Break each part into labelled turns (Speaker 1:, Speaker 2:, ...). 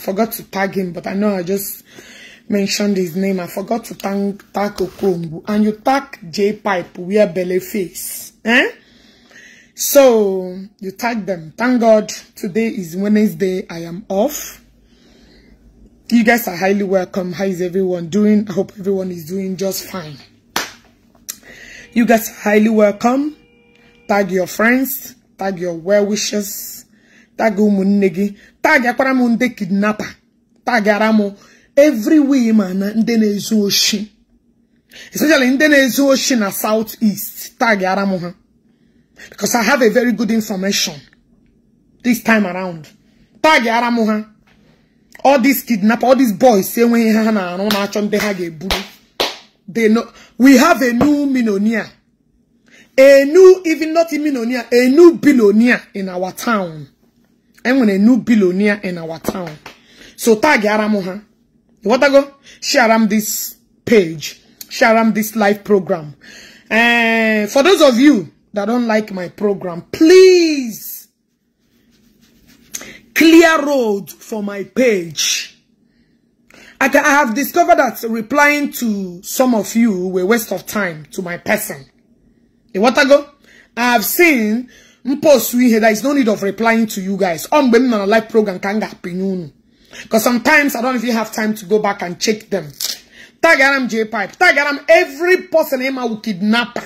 Speaker 1: forgot to tag him, but I know I just mentioned his name. I forgot to tag, tag Okongu. And you tag J-Pipe, wear belly face. Eh? So, you tag them. Thank God, today is Wednesday. I am off. You guys are highly welcome. How is everyone doing? I hope everyone is doing just fine. You guys are highly welcome. Tag your friends. Tag your well-wishers. Tag Umunegi. tag akwara m ndị kidnapa tagara m every wee ma ndị na-ezu oshi especially ndị na-ezu oshi na south east ara m ha because I have a very good information this time around ara m ha all these kidnap all these boys enweghị ha ha na-arụ na-achọ ndị ha ga-eburu they know we have a new millionaire a new even not a millionaire a new billionaire in our town enwere new billionaire in our town so tag aram what I go share am this page share am this live program uh, for those of you that don't like my program please clear road for my page I, can, I have discovered that replying to some of you were waste of time to my person. What I go? I have seen mpostu here. there is no need of replying to you guys I'm m on na live program ka m ga-apịnye because sometimes I don't even have time to go back and check them tagara J J-Pipe tagara m every person ịma will kidnap.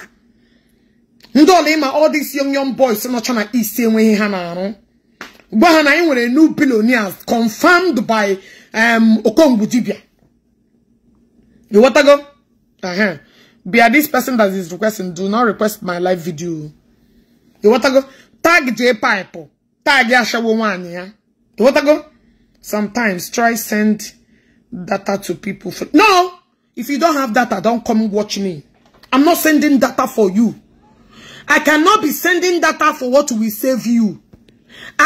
Speaker 1: ndị ọla ịma all these young young boys nọcha na east enweghị ha na-arụ gwa na anyị nwere new billionaires confirmed by um, okongu dibia you go? uh -huh. bia this person that is requesting do not request my live video ịghọtago tag jee paịpụ tag ashawo nwaanyị ya ịghọtago sometimes try send data to people for no if you don't have data don't come watch me i'm not sending data for you i cannot be sending data for what will save you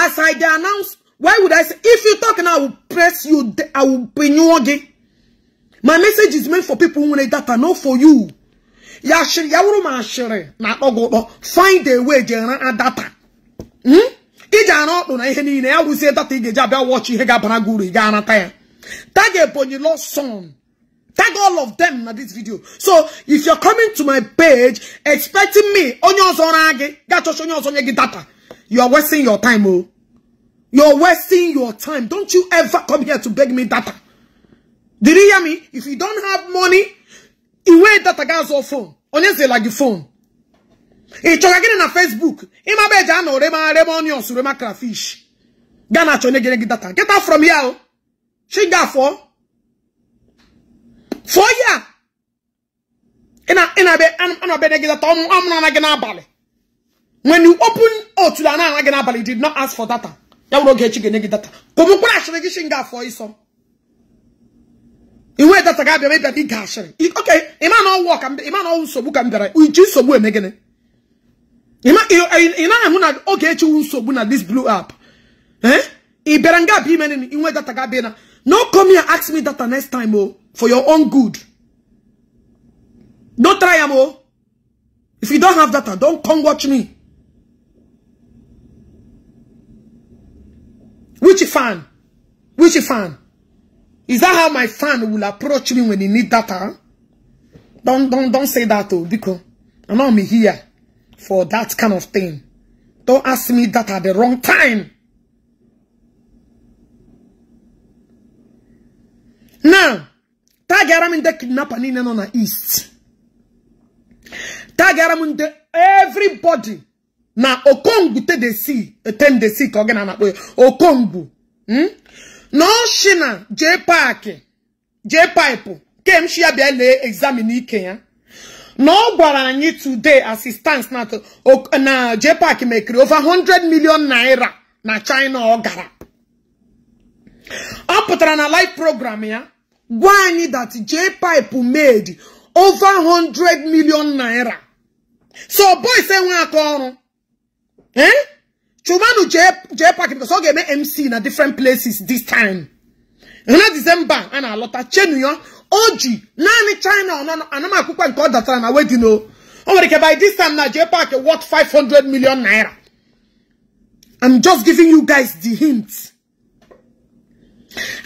Speaker 1: as i dey announce why would i say if you talk now i will press you i will pay you again my message is meant for people who need data not for you Yashiri yawuru mashiri na ogobo. Find a way jena and data. Hmm? Ija anotu na ihe niile ya wuzie data ige ji abịa watch ihe ga-abara gị ga ga-anata ya. Tag Ebonyi Lord son. Tag all of them na this video. So if you're coming to my page expecting me onye ọzọ ra gị ga-achọcha onye ọzọ nye gị data. You are wasting your time oh. You're wasting your time. Don't you ever come here to beg me data. Did you hear me? If you don't have money, iwe data gị azụ fon onye zela gị fon ị chọga gịnị na Facebook ịmaba eji anọ rema rema onions rema crayfish gaa na achọ onye gịnị gị data get out from here chi ga fọ for ya ịna-abịa gị data ọmụrụ ana gị n'abalị when you open otu na ana gị n'abalị did not ask for data ya wụrụ oge echi ga-enye gị data ka ọ mụkwara achịrị gị chi ga fọ ịsọ In iwe data made abịa ịbịa ịga asịrị okay ịma na ọwụ ka ịma na ọwụ nsogbu We just so uji nsogbu A man, ị naghị ahụ na oge echiwu nsogbu na this blue up, eh ị bịara nga abịa In nini that data ga be na no come here ask me the next time oh, for your own good don't try am oh. if you don't have that, don't come watch me which fan which fan Is that how my fan will approach me when he need data? Don't don't don't say that oh because I'm not here for that kind of thing. Don't ask me that at the wrong time. Now, gị m ndị kidnapper niile nọ na east. gị m ndị everybody na okongwu te de si eten de ka ọ gị na-anakpọ ya okongwu hmm? na oshina jee paaki jee kem kemshi ya bịa ike ya na ọ gwara anyị today assistance na JPAC mekiri over 100 million naira na China ọ gara ọ pụtara na live program ya gwa anyị that pipe made over 100 million naira so boys enwe aka ọrụ eh Chumanu J-Pack because all game MC in a different places this time. And that December, and a lot of Chenuyon, Oji, Nani China, and I'm a cook and call that time. I wait, you know. Oh, by this time now, J-Pack worth 500 million naira. I'm just giving you guys the hint.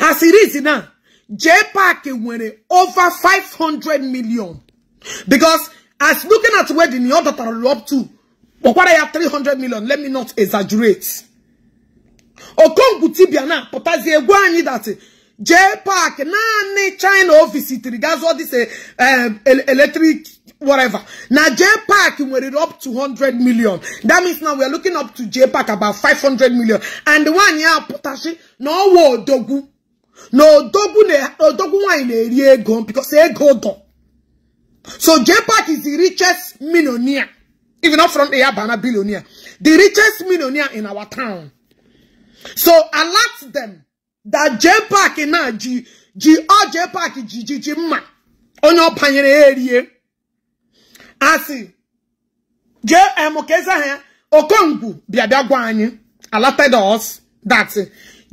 Speaker 1: As it is now, J-Pack went over 500 million. Because as looking at where the other are up to, But what I Pokwara 300 million. Let me not exaggerate. Okonguti biana potazi egwu anyị that J Park naanị China office that's what this uh, electric whatever. Now J Park we're up to 100 million. That means now we are looking up to J Park about 500 million. And the one here potashi no wo dogu. No dogu ne dogu wine eri gone because go gone. So J Park is the richest millionaire. Even not from the Abana billionaire. The richest millionaire in our town. So alert them that J Park in G G or oh, J Park G G G Ma on your panyere area. I see J eh, M Okeza here Okongu Biabagwani alerted us that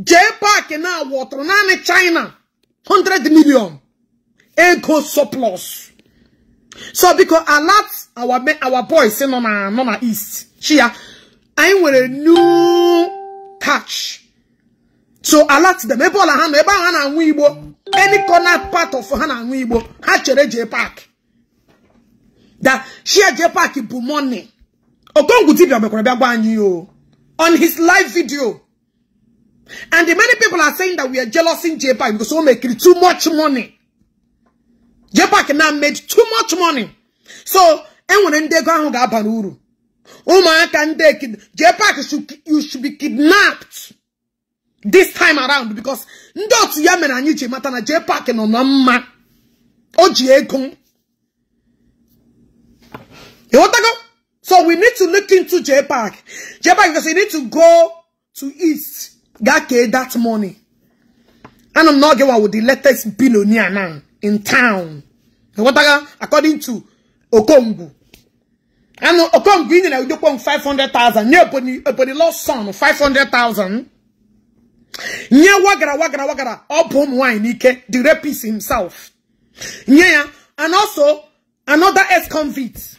Speaker 1: J Park in our water China hundred million ego surplus. So because a lot our men, our boys say no na no na east. Chia, I with a new touch. So a lot them ebo la hano hand and weibo any corner part of hand hana wibo hachere J Park. That share J Park bu money. Okongu tibia mekore bia gwanyi on his live video. And the many people are saying that we are jealous in J Park because we make too much money. Jepak pac now made too much money. So, enwere ndị ego ahụ ga-abara uru. Ụmụaka ndị you should be kidnapped this time around because ndị otu ya mere anyị ji mata na J-Pac nọ na mma. O ji So we need to look into Jepak. Jepak because you need to go to East. Gake that money. And I'm not getting with the latest billionaire now in town. according to Okongu. And Okongu in the Udopon 500,000. Near Ebony, Ebony lost son 500,000. Near Wagara, Wagara, Wagara. Obom wine, Ike, the rapist himself. Nye, and also another ex-convict.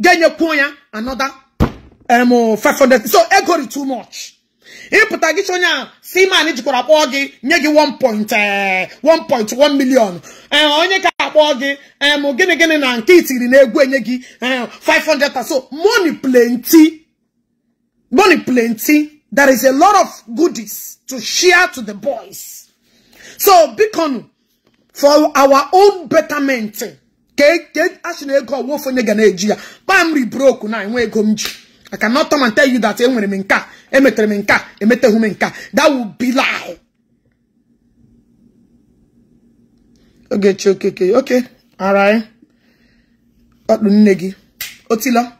Speaker 1: Genye Poya, another um, 500. So, egori too much. ịpụta gị onye a siman jikwara kpọọ gị nye gị 1.1 eh, million eh, onye ka akpọọ gị em eh, gịnị gịnị na nke itiri na egwu enye gị 500 so money plenty money plenty there is a lot of goodies to share to the boys so bikonu for our own betterment ka asị na ego ọwụfụ onye ga na-eji ya kpam ribroku na enwe ego m ji I cannot come and tell you that enwere eh, m nka emetere eh, m nka emetehu eh, m nka that would be lie.
Speaker 2: Okay, okay, okay
Speaker 1: ara ị ọkpụ nne gị otila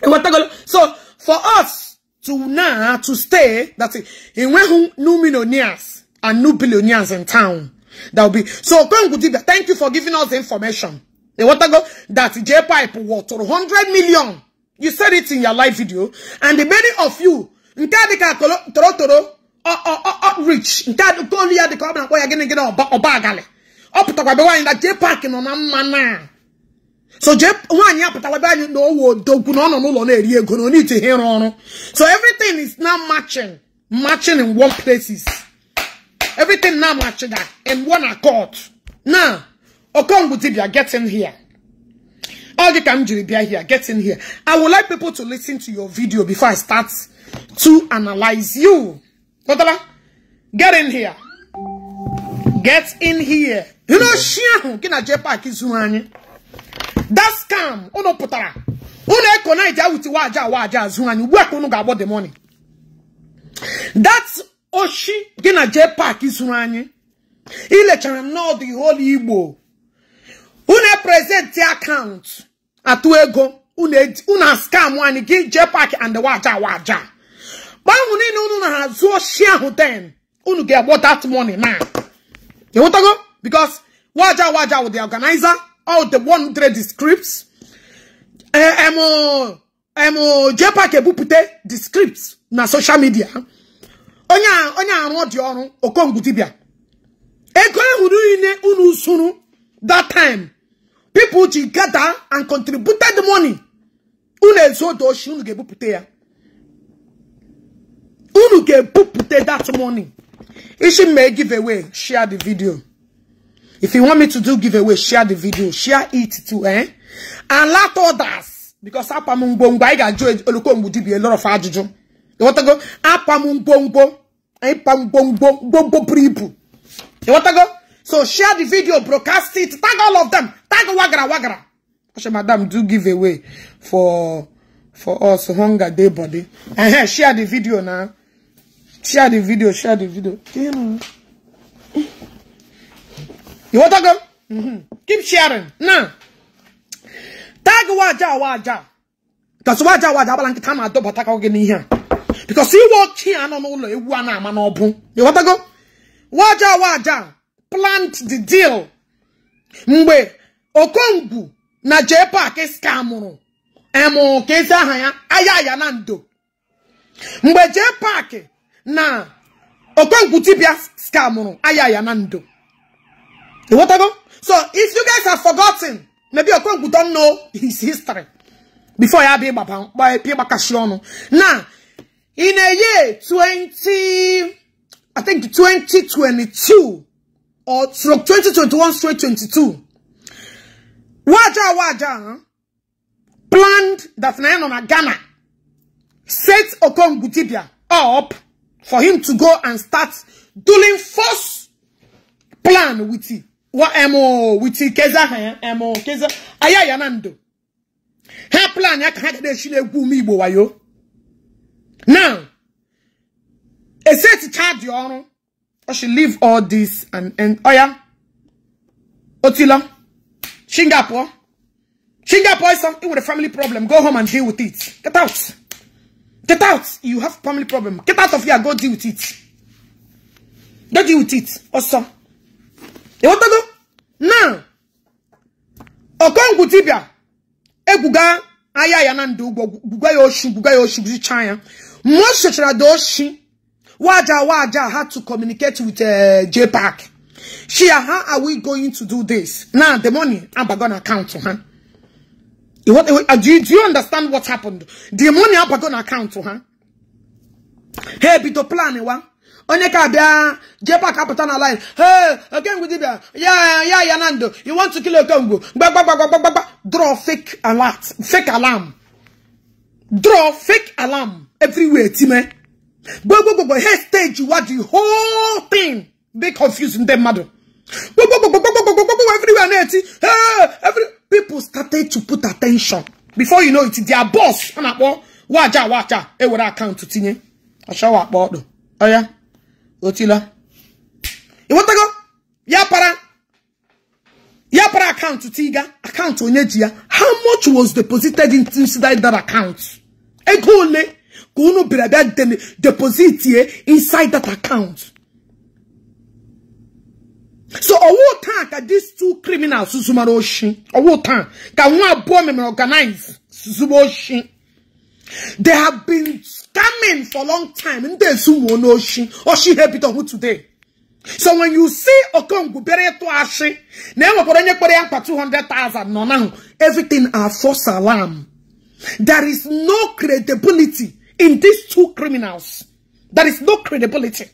Speaker 1: ewetagolo so for us to now to stay that enweghị new millionaires and new billionaires in town that will be so Okongwu thank you for giving us the information ewetago that J-Pipe worth 100 million. You said it in your live video. And the many of you, nke adịka toro toro outreach, nke adịkolu ya dịka ọ bụ na-akpọ ya gịnị gịnị ọba agalị. Ọ pụtakwa be nwaanyị na J-Park nọ na mma So J nwaanyị apụtakwa be anyị na owo odogwu na ọ no n'ụlọ na-eri ego na onye ite ihe ịrụ ọrụ. So everything is now matching, matching in one places. Everything now matching that, in one accord. Now, Okongwu dibia get in here. All the time you be here, get in here. I would like people to listen to your video before I start to analyze you. Otala, get in here. Get in here. You know, she. That's scam. Uno oh putara. Uno ekona ija uti waja waja zuani. Work unu gabo the money. That's Oshi Gina Jepa Kizuani. Ile charem no the whole Igbo. Une present the account. atụ ego unu skam anyị gị jee paaki and waja waja mgbe ahụ niile unu na-azụ oshi ahụ den unu ga-egbo that money now ịghọtago because waja waja with the organizer all the one trade the scripts emo eh, eh, eh, jepak ebupụta the scripts na social media onye onye arụ ọ dị ọrụ okongwu dibia ego ahụ niile unu sụrụ that time people gather and contributed money unu ezuodo shi unu ga-ebupụta ya unu ga-ebupụta that money ishi may give away share the video if you want me to do give away share the video share it too eh and let others because apam ngwongwo anyị ga-ajụ olokongwu dibia a lot of You want to ajụjụ ịghọtago apam ngwongwo ịpam ngwongwo You want to go? So share the video, broadcast it, tag all of them, tag Wagara Wagara. Ashe madam do give away for for us hunger day body. And here, share the video now. Share the video, share the video. You know. You want to go? Mm -hmm. Keep sharing. Now. Tag waja waja. Because waja waja balanki tama adoba taka oge ni here. Because you walk here and on all the ewu ana ama You want to go? Waja waja. plant the deal mgbe okongwu na jpark skamụrụ emụ aha ya aya ya na ndo mgbe Park na okongwu dibia skamụrụ aya ya na ndo ịghọtago so if you guys have forgotten maybe okongwu don't know his history before ya bịa gbakashi ọnụ na in a year 20 i think 2022 or stroke 2021 straight 22 waja waja planned that a Ghana set Okon Gutibia up for him to go and start doing first plan with it. What emo with Keza emo eh, Keza Ayayanando. Her plan yakade shile gumi wayo. Now, a set charge your I should leave all this and and oh yeah. Otila. Singapore. Singapore is something with a family problem. Go home and deal with it. Get out. Get out. You have family problem. Get out of here. Go deal with it. Don't deal with it. Also. You want to go? Now. Okongu tibia. Eguga. Aya yanandu. Guga yoshu. Guga yoshu. Guga yoshu. Guga yoshu. Guga Waja Waja had to communicate with uh, JPAC. Shia, uh, how are we going to do this? Now, the money, I'm going to account to huh? What, uh, do, you, do you understand what happened? The money, I'm going to account to huh? Hey, be the plan, eh, one. onye ka bịa uh, JPAC apụta na line hey okengwu dibịa ya ya yeah, na you want to kill okengwu gbagbagbagbagba draw fake alert fake alarm draw fake alarm everywhere team. gbogbogbogbo head stage you are the whole thing dey confusing dem madam gbogbogbogbogbogbogbogbogbogbo everywhere na eti every people started to put attention before you know it their boss ọ na-akpọ waja waja ewere akaụntụ tinye ọchọwa akpọ ọdụ ọya otila ịghọtago ya para ya para akaụntụ tiga akaụntụ onye ji how much was deposited into that account ego ole Kunu brebe den deposit ye inside that account. So owo tan ka these two criminals susuma ro shin. Owo tan ka won abo me organize susuma shin. They have been scamming for a long time. Nde sumo no shin. Oshi habit on today. So when you see Okongu bere to ashi, never put any put yank 200,000 no now. Everything are false alarm. There is no credibility in these two criminals. There is no credibility.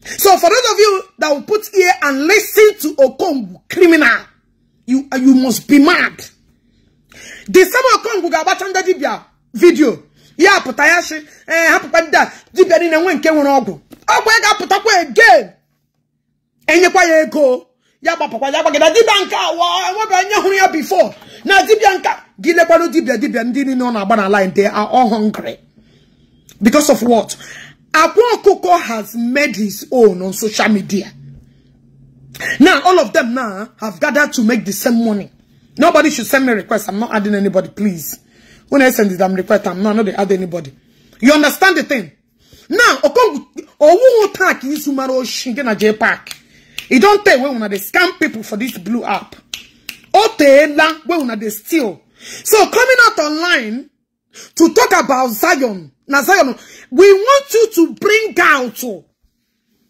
Speaker 1: So for those of you that will put here and listen to Okongwu criminal, you you must be mad. The same Okongwu gabachanda dibia video. Ya putayashi eh hapukwa dida dibia ni nwe nke ogu. ogwu. Ogwu ga putakwa again. Enyekwa ya ego. Ya gbapakwa ya gbagida dibia nka wa enwe be anya huru ya before. Na dibia nka gilekwa no dibia dibia ndi ni no na na line they are all hungry. Because of what? Abon Koko has made his own on social media. Now, all of them now have gathered to make the same money. Nobody should send me requests. I'm not adding anybody, please. When I send it, I'm request. I'm not, not add anybody. You understand the thing? Now, Okong, Owu Otak is Umaro Shingena J Park. He don't tell when they scam people for this blue app. Otela, when they steal. So coming out online to talk about Zion na Zion. We want you to bring out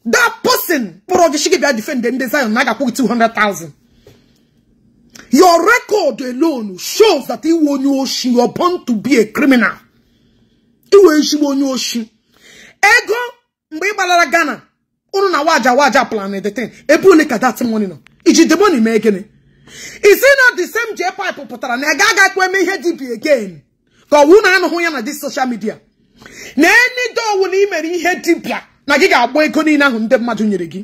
Speaker 1: that person. But she shigibia defend them. Zion naga put two hundred thousand. Your record alone shows that you were born to be a criminal. Ego mgbe ị gbalara Ghana ụnụ na waja waja plan edetin ebe ole ka dat money nọ iji the money mee gịnị isi na the same jee pipe pụtara na ị ga-aga kwe eme ihe again ka ọ wụ na anụhụ ya na social media na enidowu na imere ihe dibia na gị ga-agba ego niile ahụ ndị mmadụ nyere gị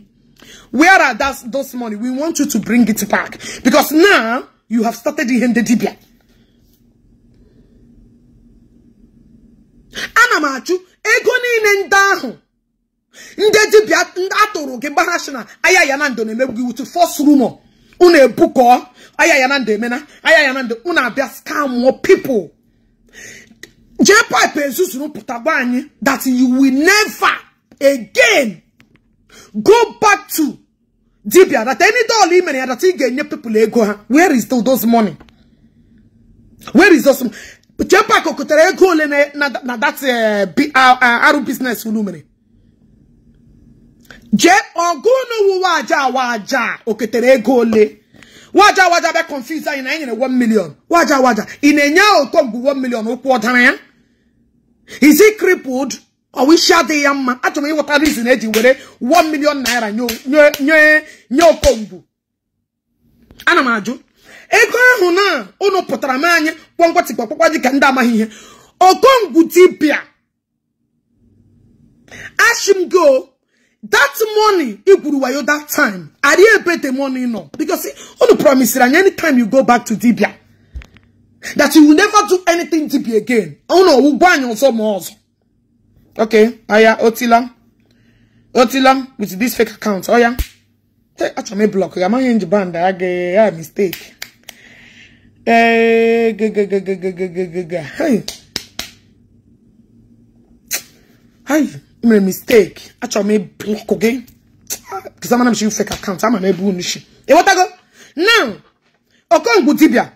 Speaker 1: where are that, those money we want you to bring it back because now you have started ihe ndị dibia ana m achụ ego niile ndị ahụ ndị dibia atụrụ gị gbarashina aya na na-emegbu gị wutu fos rumor unu ebukọ aya emena aya ya na unu abịa skamụọ pipụl jee pipe ezuzuru pụta gwa anyị that you will never again go back to dibia that any doll i mere ya that ị ga-enye people ego ha where is those money where is those jee pipe kotere ego ole na that eh, ah, ah, arụ business unu mere jee ọgụ n'ụwa waja waja oketere ego ole waja waja bịa confuse anyị na anyị nyere 1 million waja waja ị na-enye ahụ ụtọ mgbe 1 million ụkwụ ọ ya is he crippled ọwishi adịghị ya mma achọrọ m ịghọta reason eji were one million naira nye okongwu ana m ajụ ego ahụ na ụnụ pụtara m anya kpọngwatịkpọkpọkwa dị ka ndị amaghị ihe okongwu dibịa go, that money i gwuru wayo that time ari ebe the money nọ because ụnụ promise anyị anytime you go back to dibia that you will never do anything to be again. Oh no, we'll ban on some more. Okay, oh, Aya Otila. Oh, Otila oh, with this fake account. Oh yeah. Take out my block. I'm in the band. I get a mistake. Hey. Hey, my mistake. Actually, me block again. Because ah, I'm not sure fake account. I'm not able to. Hey, what I go? Now, I'm Okongbu Dibia.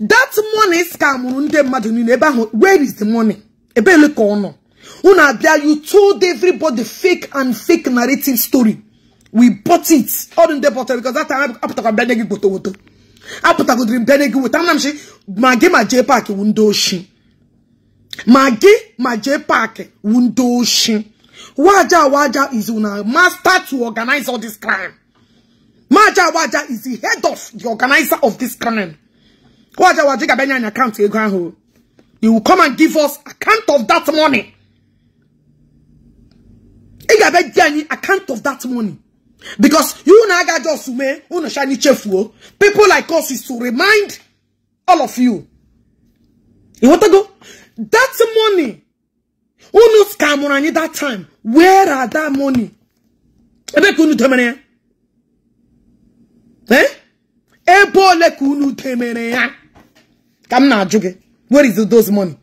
Speaker 1: that money scamụrụ ndị mmadụ niile ebe ahụ where is the money ebe ele ka ọ nọ unu abịa you told everybody fake and fake narrative story we bought it ọdụ ndị bọtara because that time apụtakwa mbịa nye gị goto woto apụtagodiri mbịa nye gị weta nna m si ma gị ma jee paakị wu ndị oshi ma gị ma jee paakị wu ndị oshi waja waja is una master to organize all this crime maja waja is the head of the organizer of this crime Waja wajiga benya in account ego ahu. You will come and give us account of that money. Iga benya any account of that money. Because you naga just me, shiny chefuo. People like us is to remind all of you. You want to go? That money. Unu scamorani that time. Where are that money? Ebe kunu temene. Eh? Ebo le kunu temene ya. Ka m na Where is those money?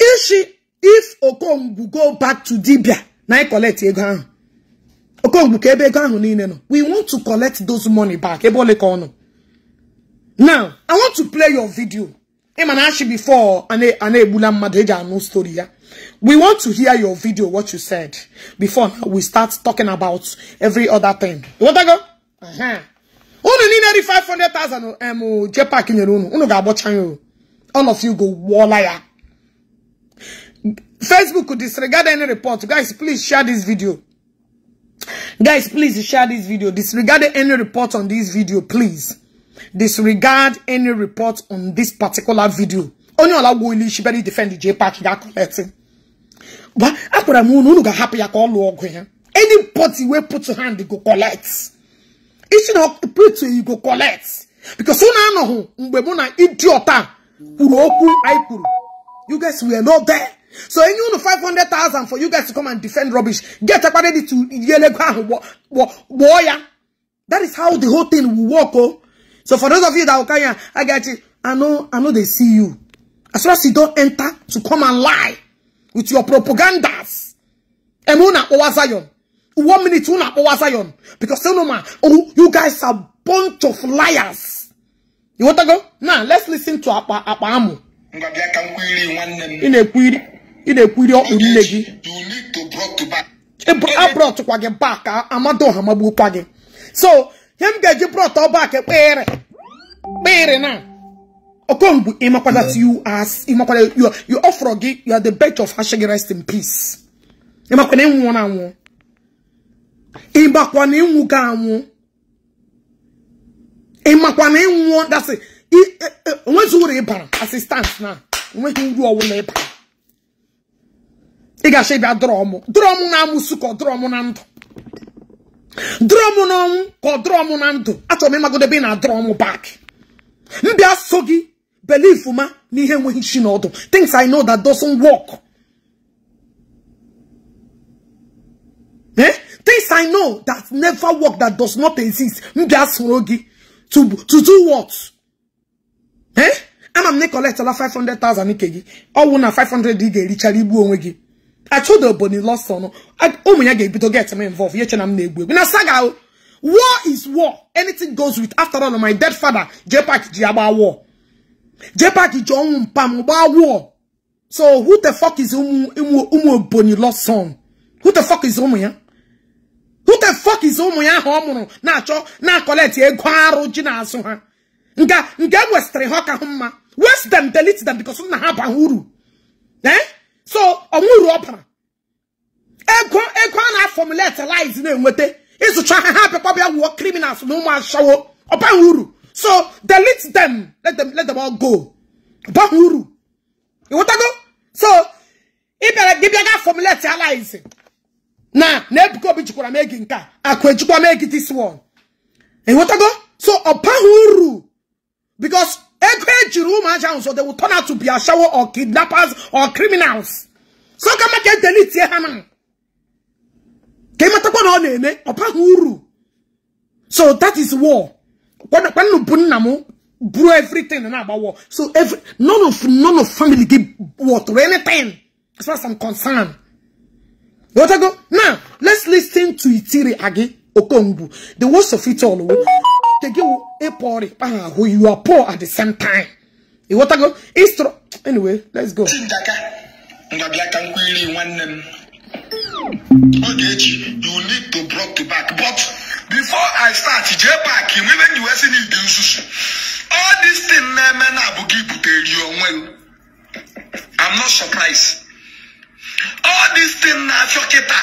Speaker 1: If she if Okongwu go back to Dibia now anyị collect again. ahụ. Okongwu ka ebe We want to collect those money back. Ebe ole Now, I want to play your video. Ịma before Ane, ane, bulam mmadụ e no story ya. We want to hear your video, what you said, before we start talking about every other thing. You want to go? Uh-huh unu niile ri 500,000 em JPAC nyere unu unu ga-agbọcha ya all of you go wọla ya Facebook disregard any report guys please share this video guys please share this video disregard any report on this video please disregard any report on this particular video Only allow gwo ilu defend the ga collect that akwara But unu unu ga-ahapụ ya ka ọ lụọ ọgụ ya any party wey put hand go collect isi na preach you go collect because una anọghị mgbe mụ na idiot a kwuru okwu anyị kwuru you guys were not there so enye unu 500,000 for you guys to come and defend rubbish get akpara ready to yelego ahụ gbọọ ya that is how the whole thing will work oh so for those of you that will carry I get you I know I know they see you as long as you don't enter to come and lie with your propagandas emuna owa Zion one minute you not power Zion because you know man, oh, you guys are bunch of liars. You want to go? Now let's listen to Apa Apa Amu.
Speaker 3: In
Speaker 1: a query, in a query You need to brought to back. Eh, I brought to Quagge back. I'm Amado Hamabu Quagge. So him get you brought to back. where? Eh, where now. Okongu, imakwada you as imakwada you you offer you are the best of Hashegi rest in peace. You Imakwada you one on one. ịmakwa na ịnwụ gị anwụ ịmakwa na ịnwụọ dasị e, e, onwezi uru ịbara asistans na onweghị uru ọwụla ịbara ị ga-achọ ịbịa drọmụ drọmụ na-amụsụ ka ọ drọmụ na ndụ drọmụ na ọnwụ ka ọ drọmụ na ndụ achọrọ m ebe ị na drọmụ bak mbịa so gị belif ma na ihe enweghị chi n'ọdụ things I know that doesn't work eh Things I know that never work, that does not exist. Mbiasrogi. To, to do what? Eh? And I'm not collect 500,000 ikegi. All one 500 digi, richari bu onwegi. I told the bunny lost son. I oh my god, to get me involved. Yet I'm negwe. When na saga oh. war is war. Anything goes with after all my dead father, Jepak Jiaba war. Jepak John Pam war. So who the fuck is Umu Umu Umu Bonny lost son? Who the fuck is Umu? Yeah? who the fuck is ụmụ ya ahụ ọ mụrụ na-achọ na-akọleti ego arụ ji n'azụ ha nke nke westịrị ha ka hụ mma west dem delete them because nna ha baha uru ee eh? so ọnwụrụ ọbara ego ego a na-afọmuletilize na-enweta ịzụcha ha ha bịakwa bịa wuo criminals na ụmụ ashawo ọbaha uru so delete them let them let them all go ọbaha uru ịghọtago so ị bịara gị bịa ga fọmuletilize na na Ebuka Obi jikwara m egi nke a akụ ejikwa m egi this one ịghọtago e so ọ baghị uru because ego ejiri ụmụaja ahụ so they will turn out to be ashawo or kidnappers or criminals so ka maka edelitie ha na ka ịmatakwa na ọ na-eme ọ baghị uru so that is war kwanụ bụ nna m buru everything na-agba war so every none of none of family gị worth anything as far as I'm concerned what I Go. Now, let's listen to Itiri Agi Okongbu. The worst of it all. who oh. poor, ah, oh, You are poor at the same time. what I go? Anyway, let's go.
Speaker 3: Ogechi, you need to block to back. But before I start, J back, you even you US in the All this thing, man, I'm not surprised. all these things na-afịọ kịta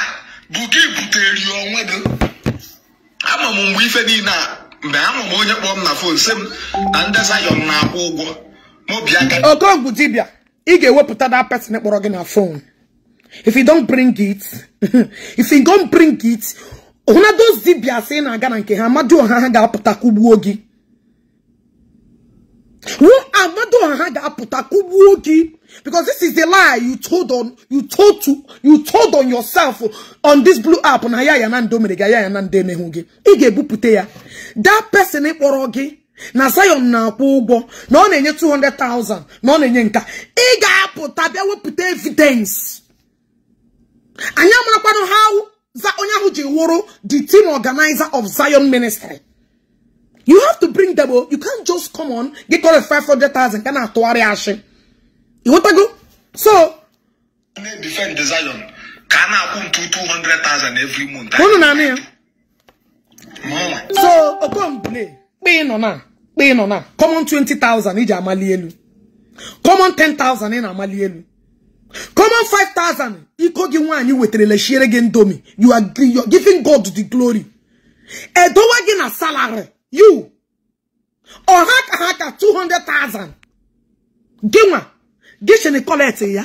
Speaker 3: bụ gị butere onwe gị ama m mgbe ife niile a mgbe ama m onye kpọọ m na fon si m na ndị
Speaker 1: zayọn na-akwụ ụgwọ Okonkwo dibia ị ga-ewepụta that person e kpọrọ gị na phone if you don't bring it if you don't bring it hụna those dibia ị na-aga na nke ha amadu ọha ha ga-apụta kụgbuo gị Who Amado Aha ga-apụta kugbuo gị? Because this is the lie you told on you told to you told on yourself on this blue app na ya ya na ndo mere gị ya ya na ndo emeghụ gị. Ị ga ebupute ya. That person kpọrọ gị na Zion na-akwụ ụgwọ na ọ na-enye 200,000 na ọ na-enye nka. Ị ga-apụta bịa wepụta evidence. Anyị amarakwanụ ha onye ahụ ji wụrụ the team organizer of Zion Ministry. You have to bring them. Oh. You can't just come on, get all the 500,000 kind of towari ashe. You want to go? So.
Speaker 3: Defend the Zion. Can I 200,000 every month?
Speaker 1: So, upon play. Be in now. Pay on now. Come on 20,000 iji amali elu. Come on 10,000 in amali elu. Come on 5,000. Iko gi nwanyị weterele shiere gị ndomi. You are giving God the glory. Edowa gị na salary. you ọha ka ha ka 200,000 gịnwa gịchịnị kọlet ya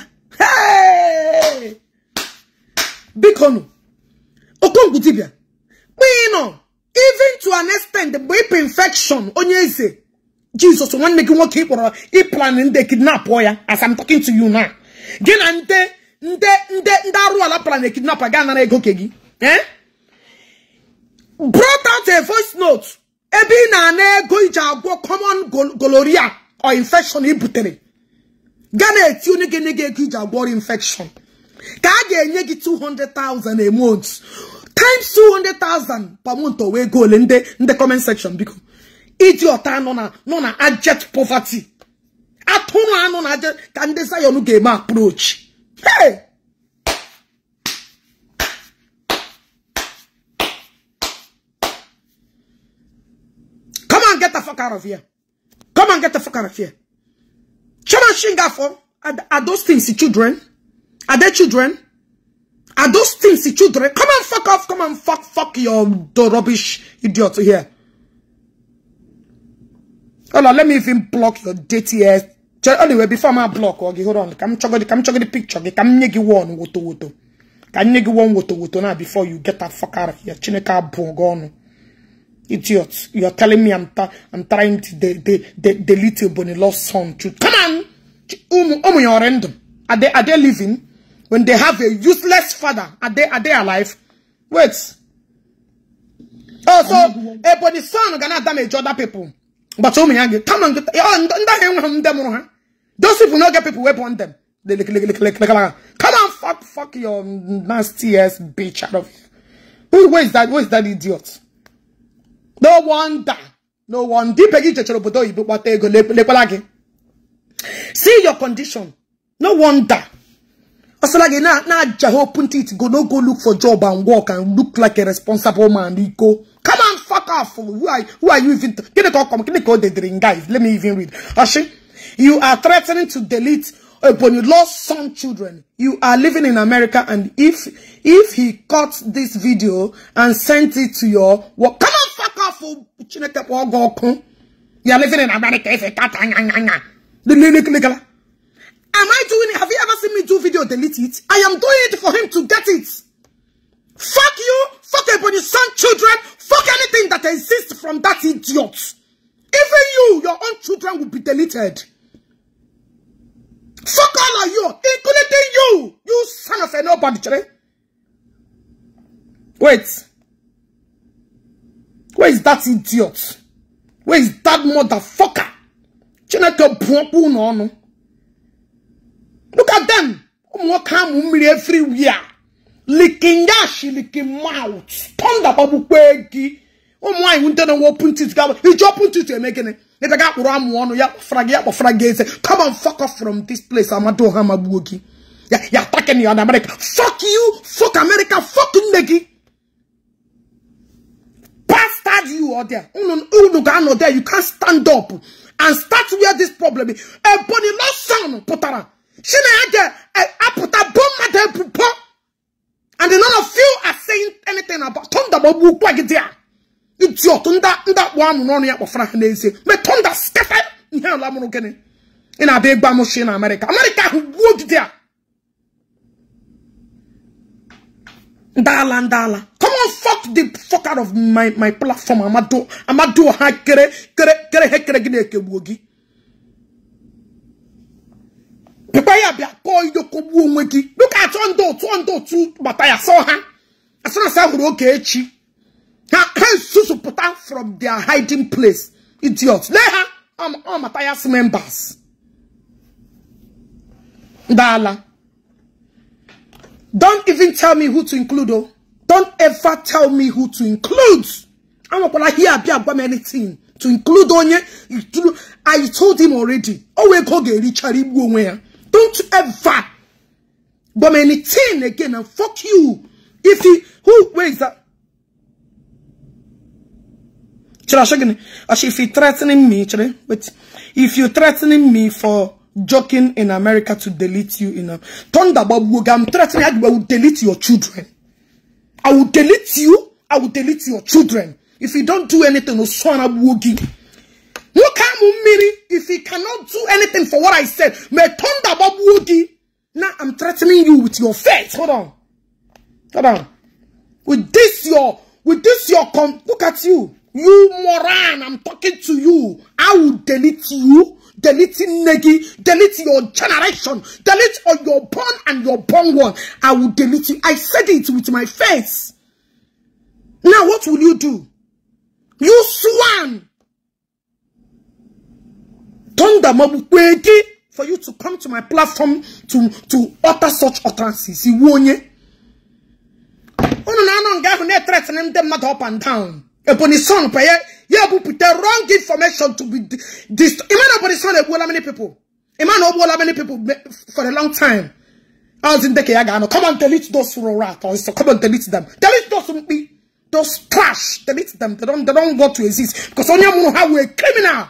Speaker 1: biko nụ okongwu dibịa kpịnọ even to an extent bụ ịpụ infection onye eze Jesus nwanne gị nwoke ị kpọrọ na ndị kidnap ya as I'm talking to you now gị na ndị ndị ndị ndị arụ ala plan kidnap ga anara ego oke gị eh? brought out a voice note ebe ị na-ana ego iji agwọ kọmọn goloria o infekshọn i butere ga na-eti onye ga-enye ego iji agwọ ọrịa infekshọn ka a ga-enye gị 200,000 a month times 200,000 per month o wee goole ndị ndị biko iji ọta anụ nọ na ajet poverty atụrụ anụ na ajet ka ndị Zion ga-eme aproch hey fuck out of here. Come and get the fuck out of here. Chairman for are, are those things the children? Are they children? Are those things the children? Come and fuck off. Come and fuck, fuck your the rubbish idiot here. Hold on, let me even block your dirty ass. Anyway, before my block, okay, hold on. Come chugga the, come chugga the picture. Okay, come nyegi one woto woto. Come you one woto woto now before you get that fuck out of here. Chineka bongono. Idiots! You are telling me I'm, I'm trying to the de de delete a Bonnie lost son to Come on! Um, your Are they, are they living? When they have a useless father, are they, are they alive? Wait. Oh, so, a Bonnie son gonna damage other people. But so many, come on, oh, those people not get people weapon them. Come on, fuck, fuck your nasty ass bitch out of here. Who, where is that? Where is that idiot? no wonder no wonder ibe gị jechara obodo oyibo kpata ego lekwala gị see your condition no wonder ọsala gị na-aja ha open teeth go no go look for job and work and look like a responsible man iko come on fuck off who are, who are you even gịnị ka ọ kọm gịnị ka o dedere guys? let me even read ọshị you are threatening to delete upon you lost some children you are living in america and if if he cut this video and sent it to your work come on You're living in america ife kata anya anya anya
Speaker 2: lekelekela
Speaker 1: am i doing it have you ever seen me do video delete it i am doing it for him to get it fuck you fuck ebony son children fuck anything that exists from that idiot even you your own children will be deleted Fuck all of you, including you, you son of a nobody. Wait. Where is that idiot? Where is that motherfucker? Chineke bụọkwa ụnụ ọnụ. Look at them. Ụmụnwoke amụ everywhere. Licking ash, licking mouth. Pọnda gbagbukwe gị. Ụmụ nwaanyị ndị na open teeth ga iji open teeth eme gịnị? Ebe ga akpụrụ amụ ọnụ ya kpọfara gị ya kpọfara gị Come on fuck off from this place Amadu Ọha magbuo gị. Ya ya attacking you on America. Fuck you, fuck America, fuck nne bastard you are there. You can't stand up and start where this problem is. A bony lost son, potara. She had eh, a puta bomb at her And none of you are saying anything about Tonda Bobu Quagidia. It's your Tunda, that one running up of Frankenese. Me Tonda Stefan, Lamono Kenny. In a big bamboo in America. America, who would there? ndala ndala come on fuck the fuck out of my my platform amado amado ha kere kere kere he kere gine ekegbuo gị pekwa ya bịa kọọ idokogbuo onwe gị dịka achọ ndị otu ndị otu gbata ya sọ ha asịrasị ahụrụ oge echi ha susu puta from their hiding place idiot le ha ọ mata ya members ndala Don't even tell me who to include, oh. Don't ever tell me who to include. I'm not gonna hear about anything. To include you? I told him already. Oh, we go get Richard Don't ever bomb anything again and fuck you. If he, who, where is that? Actually, if you're threatening me, wait, if you're threatening me for joking in America to delete you in a Thunderbob I'm threatening I will delete your children. I will delete you. I will delete your children. If you don't do anything, Oswana Wogi. Look how many if he cannot do anything for what I said, may Thunderbob Wogi. Now I'm threatening you with your face. Hold on. Hold on. With this your with this your com look at you. You moron, I'm talking to you. I will delete you. deleting Negi, delete your generation, delete all your born and your born one. I will delete you. I said it with my face. Now what will you do? You swan. Thunder mabukwegi for you to come to my platform to to utter such utterances. Iwonye. Unu na anọ nga ahụ na-etretening ndị mmadụ up and down. Ebonyi son peye Yeah, but put the wrong information to be this. Imagine about this one, how many people? Imagine how many people for a long time. I was in the Kayagano, come and delete those rat or come and delete them. Delete those those trash. Delete them. They don't they don't want to exist because only one have a are criminal.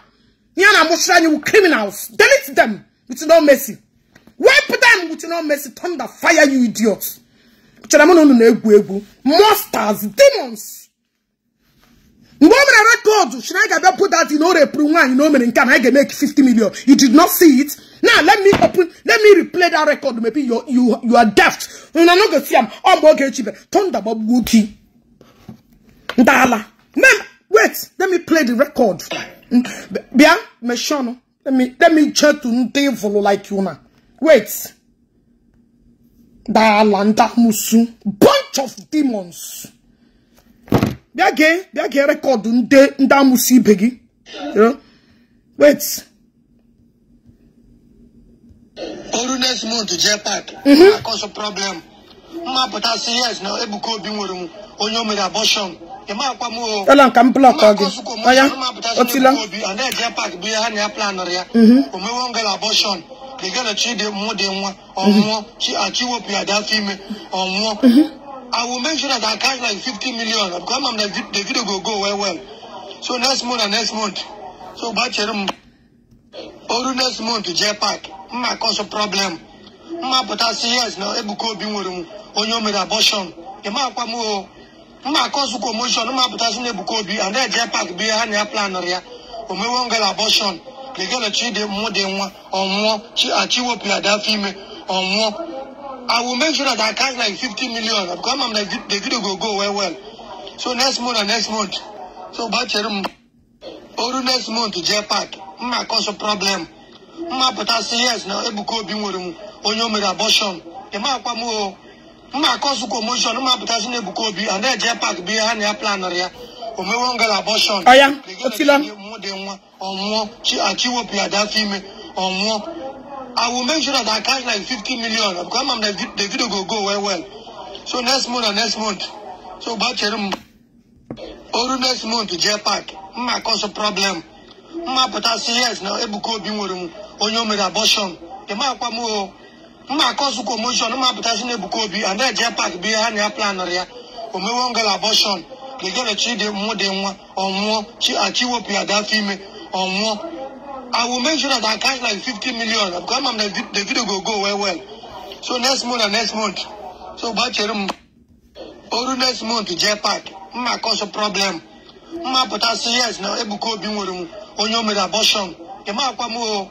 Speaker 1: Yana Moshrani you criminals. Delete them with no mercy. Wipe them with no mercy. Thunder fire, you idiots. Monsters, demons mgbe o mere record Should I get put that in o repụrụ nwaanyị na o mere nke a na anyị ga-emeke million you did not see it now let me open let me replay that record maybe you you you are daft na no go see am ọ mgbe cheap. Turn the Bob gị ndala mem wait let me play the record bịa meshọnụ let me let me check to ndị vụlụ like you na wait dala ndamusu bunch of demons bịa gee bịa gee ndị ndị ibe gị wait
Speaker 2: oru next month jee pak mhm. akọsọ problem mmapụta si yes na ebuka obi nwere m onye o mere abọshọn
Speaker 1: Ela nka m blọk gị
Speaker 2: ọya otila anaeje pak bụ ihe ha na ya planụrụ ya mhm. omewe ngala abọshọn ị gana chidi mụ dị nwa ọnwụọ mhm. chi achị wepụ ya afọ ime ọnwụọ I will make sure that I cash like 50 million. Because I'm the, the video will go well, well. So next month and next month. So Bacherum, or next month to J-Pack. My cause a problem. My potassium, yes, now Ebuko Bimurum, on your made abortion. The Makwamo, my oh, cause commotion, my potassium Ebuko obi and then J-Pack be a hand plan or ya. Or my one girl abortion. They get a treat them more than one or more. She achieved up female or more. I will make sure that I cash like 50 million. Because I'm like, the video will go well, well. So next month and next month. So bacherum. Or next month to J Mma cause a problem. Mma put yes now. Ebuko obi nwere onye mere abortion. Mma akwa o oh. Mma cause commotion. Mma put us Ebuko obi and J Park bi ha na plan ya. O mewe ngala abortion. Oya, otila. Mo de nwa. Ọmụọ chi I will make sure that I catch like 50 million because I'm the, the video will go well well. So next month and next month. So bachelor or next month jetpack. Ma cause a problem. Ma put a yes now ebuko bi nwere mu onye mere abortion. E ma kwa mu o. Ma cause commotion ma put a us na ebuko bi and that jetpack bi ha na plan ya. O me won girl abortion. The girl chi de mu de nwa she will be a ada fime more. I will make sure that I cash like 50 million. Because I'm, the, the video will go well, well. So next month and next month. So Bacherum, mm. or next month, Jepat, my mm, cause a problem. My mm, potassium, yes, now Ebuko Bimurum, Onyomid abortion. Emma Pamo,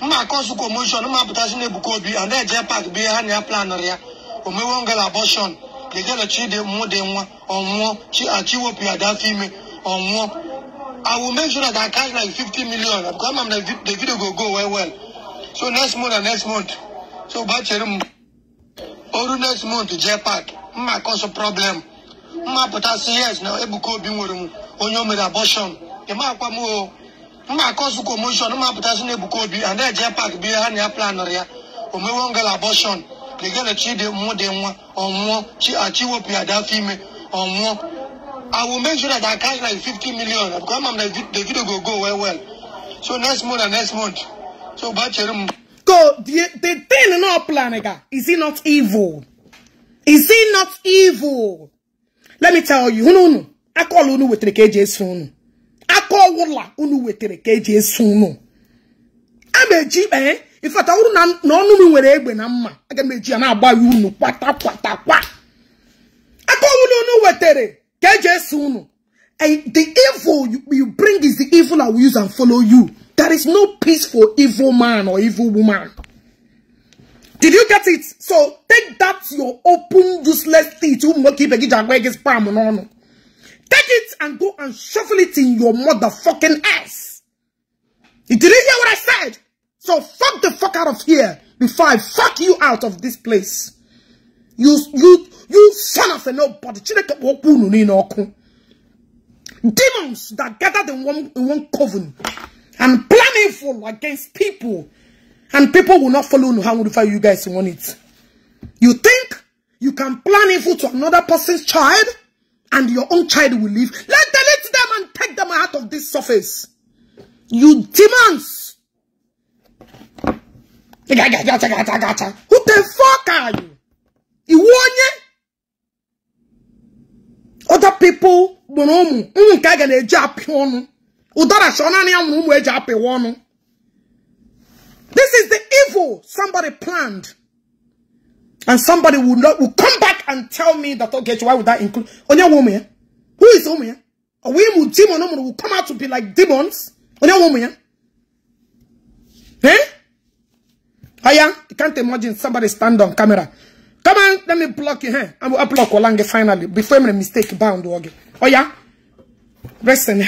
Speaker 2: my cause of commotion, my potassium Ebuko B, and then Jepat behind your plan area. Omewongal abortion. They get a cheat, they more than one, or more, she achieve up your that female, or more. I will make sure that I catch like 50 million. Because I'm like, the video will go well, well. So next month and next month. So batch or next month to J-Pack. My cause a problem. My potassium yes now. Ebuko bimurum. Onyo made abortion. My kwamo. My cause commotion. My potassium ebuko bi. And then J-Pack be a near plan or ya. Ome one girl abortion. The girl achieved more than one or more. She achieved what a had that female or more. I will make sure that I cash like 50 million because I'm like, the video go go well, well. So next month and next month. So Bacherum. Go, the, thing thing plan planega. Is he
Speaker 1: not evil? Is he not evil? Let me tell you, unu unu. I call unu with the KJ soon. I call wula unu with the KJ soon. I'm a jeep, eh? In fact, I wouldn't know no where egg when I'm. I can make you an abba you, kwata kwata I call unu wetere. jeje And the evil you, you bring is the evil I will use and follow you. There is no peace for evil man or evil woman. Did you get it? So take that your open useless teeth. to monkey begi jagwege spam no no. Take it and go and shuffle it in your motherfucking ass. You didn't hear what I said? So fuck the fuck out of here before I fuck you out of this place. You you You son of a nobody. Chineke okwu unu niile ọkụ. Demons that gathered in one, in one coven and plan evil against people. And people will not follow unu how would you guys want it. You think you can plan evil to another person's child and your own child will live. Let delete them and take them out of this surface. You demons. Who the fuck are you? Iwonye? other people gburu ụmụ ga na-eji apị ọnụ ụdara this is the evil somebody planned and somebody will, not, will come back and tell me that okay why would that include onye nwe who is ụmụ ya ọ mụ demon will come out to be like demons onye nwe eh? Aya, you can't imagine somebody stand on camera Come on, let me block you here. I'm going to block Olange finally. Before i make a mistake bound. Okay. Oh yeah? Rest in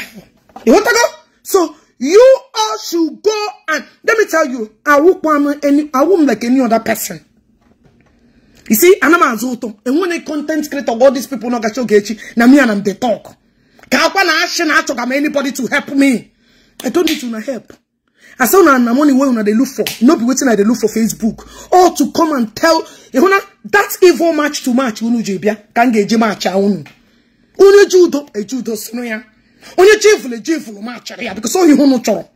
Speaker 1: You want to go? So, you all should go and... Let me tell you, I won't, any, I won't like any other person. You see, I'm a azoto. And when a content creator, all these people no gacho gechi, na me and them they talk. Kakwa na ashe anybody to help me. I don't need to help. I say una na money wey una dey look for. No be wetin I dey look for Facebook. Or to come and tell ehuna that evil match to match unu je bia kan ga eje match a unu. Unu judo ejudo sinu ya. Onye chiefulu chiefulu e match ya because onye unu choro.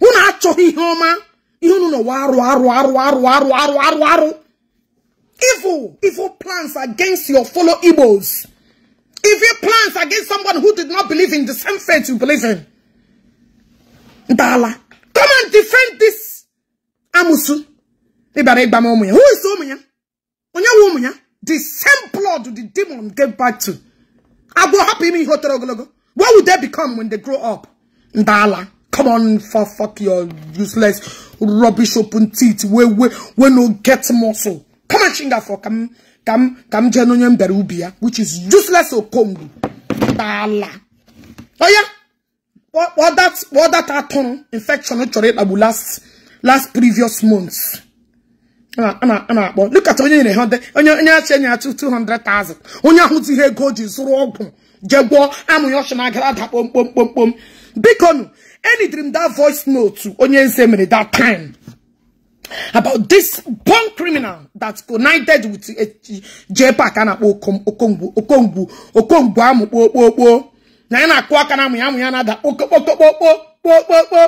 Speaker 1: Unu achọghị ihe ọma. Ihe unu no waru aru aru aru aru aru aru aru. Evil, evil plans against your fellow Igbos. Evil plans against someone who did not believe in the same faith you believe in. Dala. Come and defend this Amusu. Who is Omunya? Onya Omunya? The same blood the demon gave back to. I go happy me hotorogo. What would they become when they grow up? Ndala. Come on, for fuck your useless rubbish open teeth. We we we no get muscle. Come on, chinga for come come come jenonyem berubia, which is useless okongu. Dala. Oh yeah. kpọọ that kpọọ that atụrụ infection chọrọ ịkpagbu last last previous months a na-akpọ lukata onye nyere onye onye achị enye achụ 200,000 onye ahụ ji ihe ego ji zụrụ je jee gwọọ amụ ya ọchụ na agara ada kpomkpom bikonu that voice note onye nze mere that time about this born criminal that united with JPAC a na-akpọ okongbu okongbu okongbu na ya na-akụ aka na amụ ya amụ ya na-ada kpokokpokpokpokpokpokpo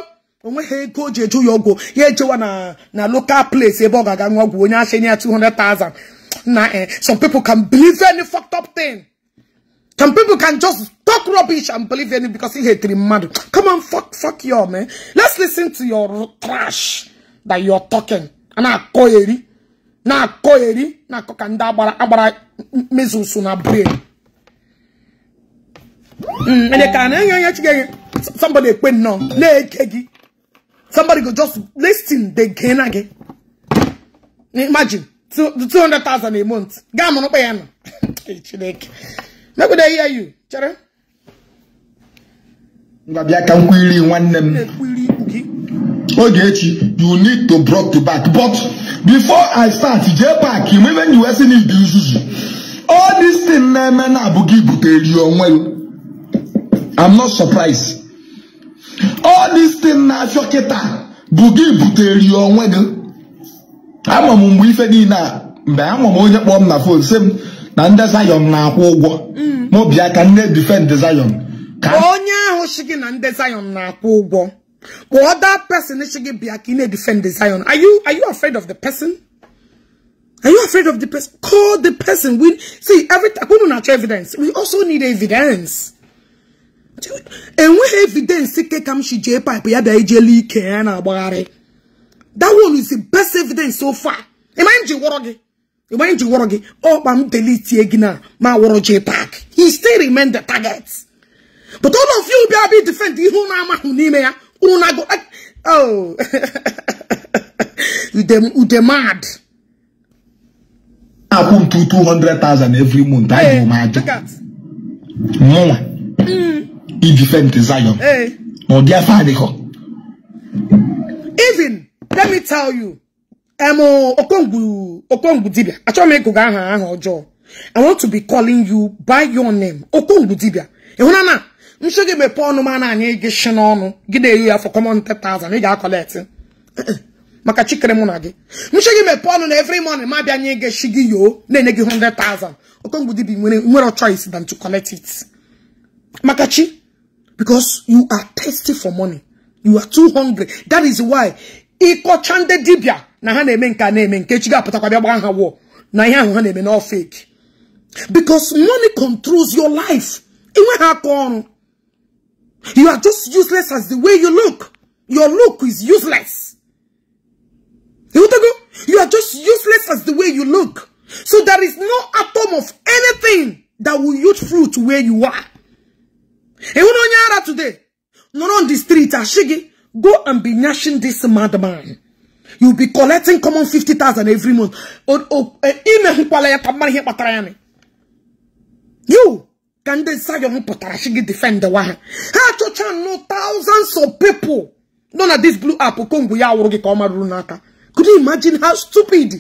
Speaker 1: o nweghị ego o ji eju ya ọgwụ ya ejewa na na local place ebe ọ ga-aga nwa ọgwụ onye ashenye ya 200,000 na eh, some people can believe any fucked up thing some people can just talk rubbish and believe any because he hated mmadụ come on fuck fuck you man let's listen to your trash that you're talking na-akọ eri na-akọ eri na-akọ ka ndị agbara agbara mezusu na brain Mm, and they can somebody pay no. Somebody go just listen, they gain again. Imagine two two hundred thousand a month. Gamma no pay no. Maybe they hear you, Chere.
Speaker 3: Ngabia can query one name. you need to brought to back. But before I start, J Park, even you need to use All this thing na me na abugi you onwe you. I'm not surprised. All these things na afọ kịta bụ gị butere ya onwe gị. Ama m mgbe ife niile a mgbe ama m onye na fon sị m na ndị Zion na-akwụ ụgwọ maobi mm. aka defend Zion.
Speaker 1: Ka onye ahụ si gị na ndị Zion na-akwụ ụgwọ ka person si gị bịa na-defend Zion are you are you afraid of the person? Are you afraid of the person? Call the person. We see every. We don't have evidence. We also need evidence. enweghị evidence ke ka m shi jee pipe ya bịa ijele ike ya na-agbagharị that one is the best evidence so far ịmanye ji wọrọ gị ịmanye ji gwọrọ gị ọkpa m delitie gị na ma wọrọ jee tak he still remain the target but all of you bịa bịa defend ihe unu amahụ n'ime ya unu na-agụ oh ude na-akwụ
Speaker 3: ntu 200,000 every month anyị bụ m aja defend Zion. Hey. No, Even,
Speaker 1: let me tell you, I'm um, Okongu, Okongu Dibia. Actually, I'm going to I want to be calling you by your name, Okongu Dibia. Ehunana, I'm sure you may pour no man and you get shenonu. Give you for common 10,000. You got collecting. maka chikere mụ na gị nche gị mepe ọnụ na every morning ma bịa nye gị shigi yo na-enye gị thousand. okongwu dibi nwere nwere choice than to collect it maka chi Because you are thirsty for money. You are too hungry. That is why. Iko chande dibia. Na ha na-eme nke a na Na fake. Because money controls your life. It will happen. You are just useless as the way you look. Your look is useless. You are just useless as the way you look. So there is no atom of anything that will yield fruit where you are ịhụ na onye ara today nọrọ on the street Ashigi, go and be nashing this madman you will be collecting common 50,000 every month imehụkwala ya you ka ndị Zion pụtara sị gị defend wa ha to achọcha no thousands of people nọ not this blue app kongwu ya wụrụ gị ka could you imagine how stupid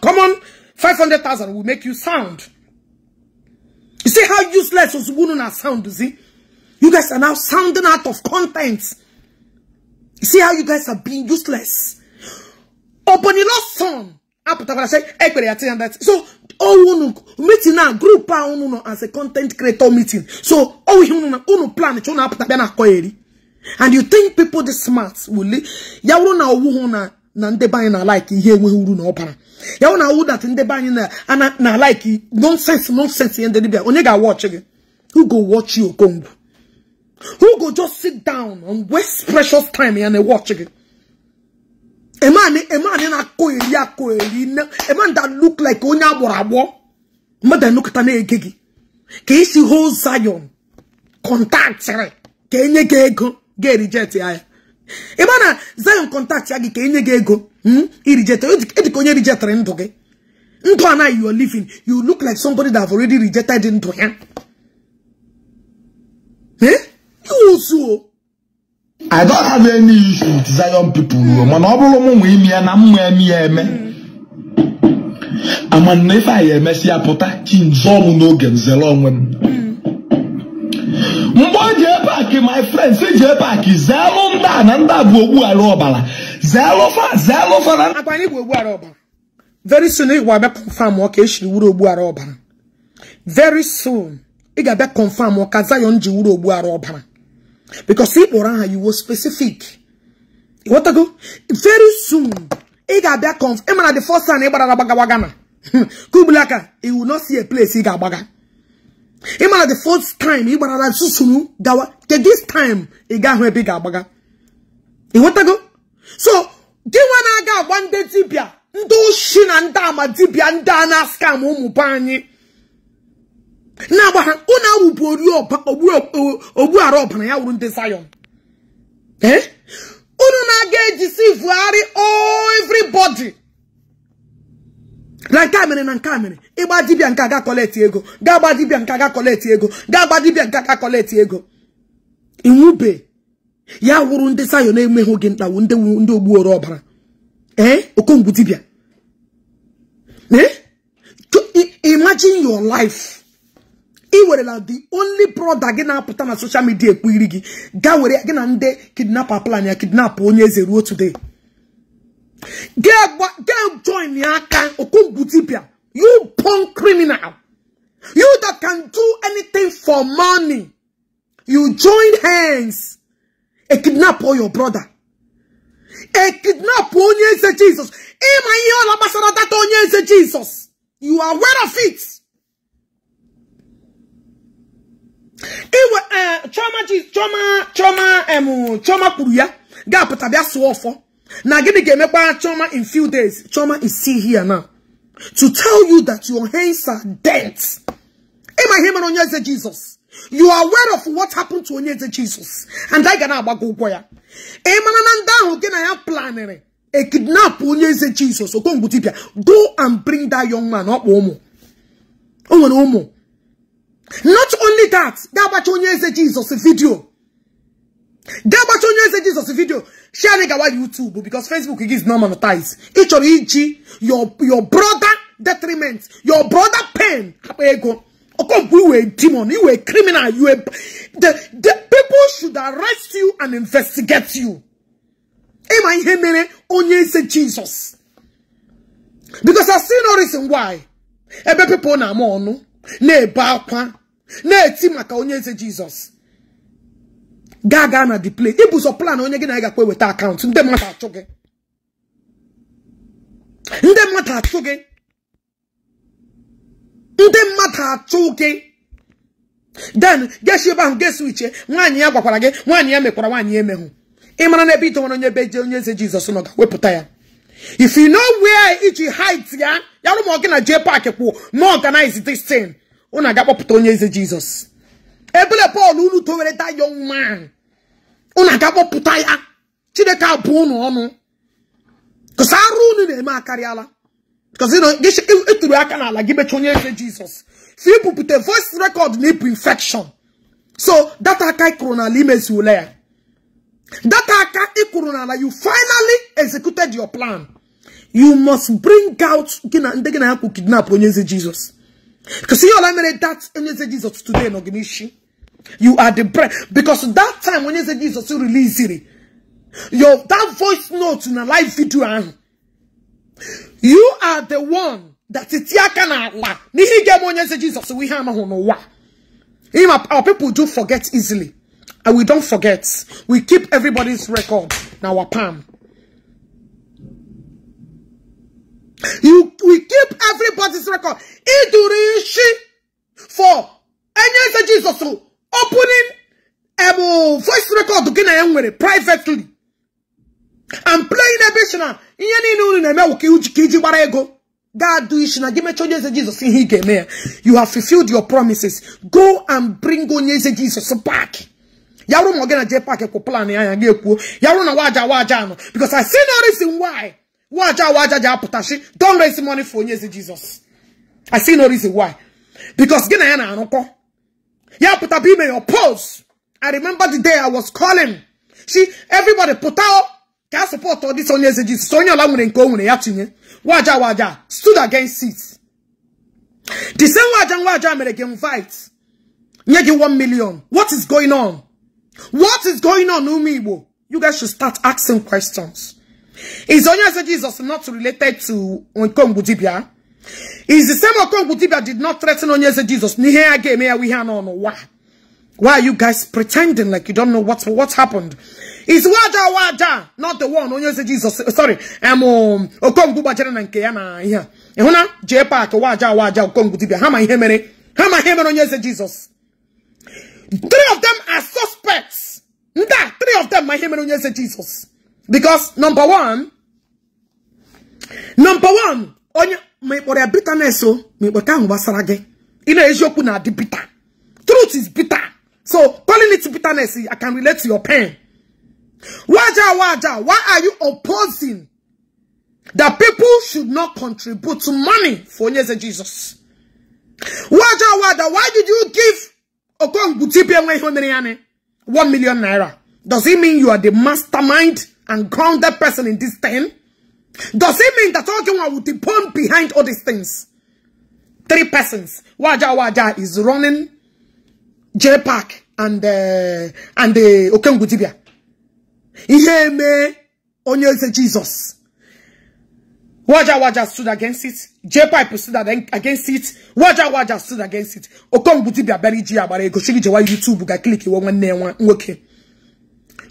Speaker 1: common 500,000 will make you sound you see how useless ozugbo unu na sound zi You guys are now sounding out of content. See how you guys are being useless. Open son. Aputakwala say, So, oh, unu, meeting now group pa unu no, as a content creator meeting. So, oh, unu na, plan, chona aputakwala koyeri. And you think people this smart will, yawru na owu na, na ndị be anyị na-alaiki ihe enweghị uru na ọbara ya na who go watch you okongwu who go just sit down and waste precious time and watch it? A man, a man in a coeli, a man that look like Onya Warabo, mother look at an eggy. Casey whole Zion, contact, can you go, get rejected? A man, uh, Zion contact, Yagi, can you go, hm, rejected, Ediconia rejected, and okay. Ntwana, you are living, you look like somebody that have already rejected into him. Eh? wusu I don't have any issue with Zion people mana
Speaker 3: ọ bụrụ m ime na mma eme eme amana ife anyị emesịa pụta chinzọọ ọmụ n'oge nzere onwe m mgbe
Speaker 1: o jee paakị my friends e jee paakị zelụ ndị a na a fa fa na akwanye bụ ogbughara ọbara very soon ị ga-abịa confam ọ ka esiri wuru ọbara very soon ị ga ọbara because ị kpọrọ aha iwo specific ịghọtago very soon ị ga-abịa conf ị mara the first time ị gbara agbagawaga na kubulaka ah. you will not see a place ị ga-agbaga ị mara the first time ị gbarara gawa ke this time ị ga-ahụ ebe ị ga-agbaga ịghọtago so gị nwa na-aga agwa ndị dibịa ndị oshi na ndị ama dibịa ndị a na-askam ụmụ be anyị na-agba ha unu awụpụ ọbara ya wụrụ ndị sayọn unu na-aga ejisi vụgharị everybody na nke a mere na nke a mere ịgba dibia nke aga kọleti ego ga-agba dibia nke aga kọleti ego ga-agba dibia nke aga kọleti ego inwube ya wụrụ ndị sayọn na-enweghị oge ntawu ndị ogbuoro ọbara ee okongwu ị werela the only brother gị na-apụta na social media ekpu iri gị gaa were gị na ndị kidnapper plan ya kidnap onye eze ruo today gee join ya aka okongwu dibia you punk criminal you that can do anything for money you join hands e kidnap all your brother e kidnap onye eze jesus ịma ihe ọla gbasara data onye eze jesus you are aware of it. iwe eh, choma ji choma em kwuru ya ga-apụta bịa sụọ ọfọ na gịnị ga-emekwa chioma in few days chioma is still here now to tell you that your hands are dead ịma ihe mere onye eze jizọs you are aware of what happened to onye eze jizọs and anyị ga na-agbago ụgwọ ya ịmara na ndị ahụ gị na ya planịrị a e kidnap onye eze jizọs okongbu dibia go and bring that young man ọkpa ụmụ o nwere ụmụ Not only that, dábàtí onye eze Jesus video. dábàtí onye eze Jesus video. Share it on YouTube because Facebook is not monetized. Each or each, your your brother detriment, your brother pain. Ego. Okay, you were a demon, you were a criminal, you were the, the people should arrest you and investigate you. Am I here, only eze Jesus? Because I see no reason why. Ebe people na mo onu ne eba akwa na-eti maka onye eze jizọs gaa gaa na di play ibu plan onye gị na gakwa eweta akaụntụ ndị mmadụ achụ gị ndị mmadụ achụ gị ndị mmadụ achụ gị den geshi ebe ahụ uche nwaanyị ya gwakwara gị nwaanyị ya mekwara nwaanyị emehụ ị mara na ebe idowara onye ebe je onye eze jizọs nọ ga-wepụta ya if you know where iji hide ya yarụmọ gị na jee park kwụ na organize this thing unu aga onye eze jizọs ebele pọl unu towereta young man unu aga kpọpụta ya chineke abụ ụnụ ọnụ kụsị arụ unu na-eme akarịala ịtụrụ aka n'ala gị mechaa onye eze jizọs si ibupụta voice record na ịbụ infection so data aka ịkụrụ n'ala imezi ya data aka ịkụrụ n'ala you finally executed your plan you must bring out gị na ndị gị na ya kwụ kidnap onye eze jizọs Because see, all I made that and you say Jesus today, no gimishi. You are the bread. Because that time when you say Jesus, you release it. Your that voice note in a live video. Ah. You are the one that it yakana la. Nihi gemo you say Jesus, we hama no wa. Our people do forget easily. And we don't forget. We keep everybody's record in our palm. You we keep everybody's record. Idurishi for any Jesus so opening um, voice record to nwere privately. and playing a bit now. Ihe niile unu na-eme wụ ka iji gbara ego ga du isi na gị mechaa onye eze jesus ihe ị ga-eme ya you have fulfilled your promises go and bring onye eze Jizọs back yarụ ma ọ gị na jee paak kwụ plan ya anya ga-ekwuo yarụ na waja waja anọ because I see no reason why Waja waja ja putashi. Don't raise money for Onyezi Jesus. I see no reason why. Because gina yana anoko. Ya puta be may oppose. I remember the day I was calling. See, everybody puta. out can support all this Onyezi Jesus. Sonya la mune nko mune yatinye. Waja waja stood against it. The same waja waja mere game fight. Nyegi one million. What is going on? What is going on, Umibo? You guys should start asking questions. Is Onyezo Jesus not related to Okongu Dibia? Is the same Okongu Dibia did not threaten Onyezo Jesus? no Why are you guys pretending like you don't know what, what happened? Is Waja Waja not the one Onyezo Jesus? Sorry, I'm um, Okongu Bajere kaya nke ya na ihe. Ehuna J Waja Wada Wada How many here ihe mere? Jesus? Three of them are suspects. Nda, three of them my ihe mere Onyezo Jesus. Because number one, number one, onye mekpọrọ ya bitterness so mekpọta ahụ gbasara gị ị na-eziokwu di bitter truth is bitter so calling it bitterness I can relate to your pain waja waja why are you opposing that people should not contribute to money for onye Jesus waja waja why did you give Okongwu tipi one million naira does it mean you are the mastermind and ground that person in this thing? Does it mean that Ojoa will depend behind all these things? Three persons. Waja Waja is running J Park and uh, and the uh, Okengudibia. Ihe me onye Jesus. Waja Waja stood against it. J Pipe stood against it. Waja Waja stood against it. Okongudibia buried Jia Bare Goshigi Jawa YouTube ga click one one, one, Okay.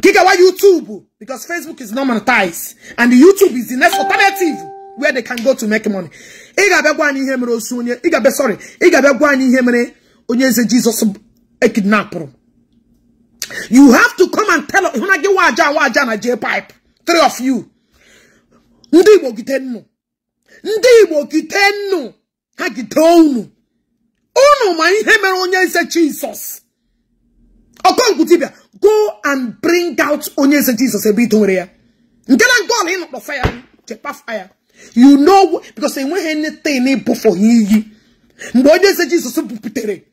Speaker 1: Gigawa YouTube, because Facebook is not monetized, and YouTube is the next alternative where they can go to make money. Ị ga gwa anyị ihe mere osu onye, ị ga-abịa sorry, ị ga gwa anyị ihe mere onye eze Jizọs ekidnapụrụ. You have to come and tell hụna gị waja waja na J-pipe, three of you. ndi Igbo gide nnu. Ndị Igbo gide nnu. Ha gide unu. ma ihe mere onye eze jesus Ọkọnkwu dibịa go and bring out onye eze Jesus ebe ito nwere ya nke na nke ọla ịnọkpọ ya chepa fire you know because enweghị anything ịbụ for ha iyi mgbe onye eze Jesus buputere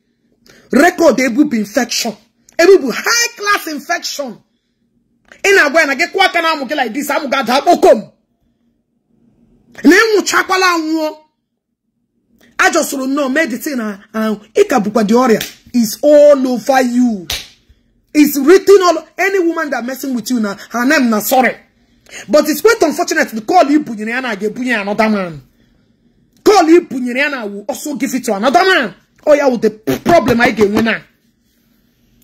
Speaker 1: rekọd ebubu infection ebubu high class infection ị na-agwa ya na gị kụọ aka na amụ gị like this amụ ga-ada kpokom na ịnwụchakwala anwụọ soro nnọọ meditin ahụ ị ka bụkwa dị ọrịa is all over you. It's written all any woman that messing with you now, her name na sorry. But it's quite unfortunate to call you again, Gebunya another man. Call you Bunyana will also give it to another man. Oh yeah, with the problem I get winner.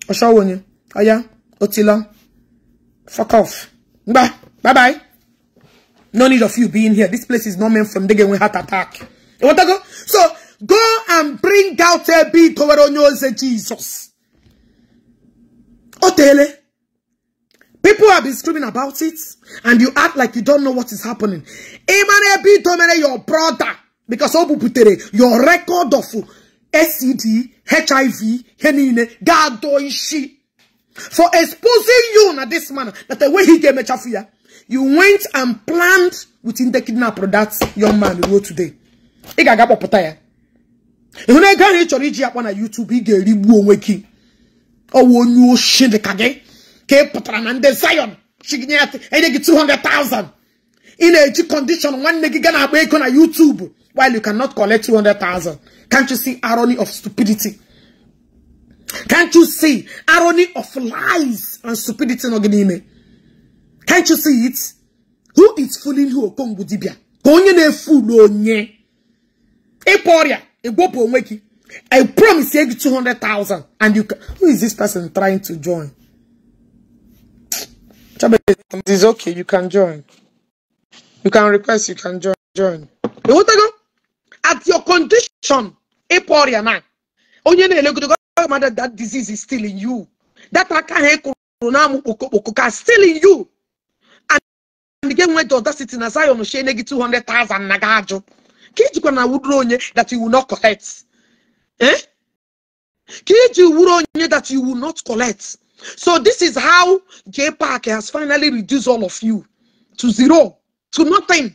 Speaker 1: oh Aya, Otila. Fuck off. Bye. Bye bye. No need of you being here. This place is not meant from the game heart attack. You want to go? So go and bring out a bit over on Jesus. Otele. People have been screaming about it, and you act like you don't know what is happening. Emmanuel B. Domene, your brother, because putere, your record of SED, HIV, Henine, Gadoishi, for exposing you in this manner, that the way he came me chafuya, you went and planned within the kidnapper that young man who wrote today. Ị ga-agakpọpụta ya. Ịhụ na ego ahụ ị chọrọ YouTube ị ga-erigbu onwe gị ọwọ onye oshi dị ka gị ka ị pụtara na ndị Zion chiginye ya enye gị 200,000 ị na-eji condition nwanne gị gaa na-akpa ego na YouTube while you cannot collect 200,000 can't you see irony of stupidity can't you see irony of lies and stupidity nọ gị n'ime can't you see it who is fooling who okongwu dibia ka onye na-efu onye ịkpa ọrịa ịgwọpụ onwe gị I promise you 200,000. And you can, who is this person trying to join? It is okay. You can join. You can request. You can join. Join. At your condition, Eporia now. that disease is still in you. That akahe corona mukokoka still in you. And the when went to audacity na Zion shene 200,000 nagajo. Kijikwa you wudro onye that you will not collect. Eh? Killed you would that you will not collect. So this is how J Park has finally reduced all of you to zero, to nothing.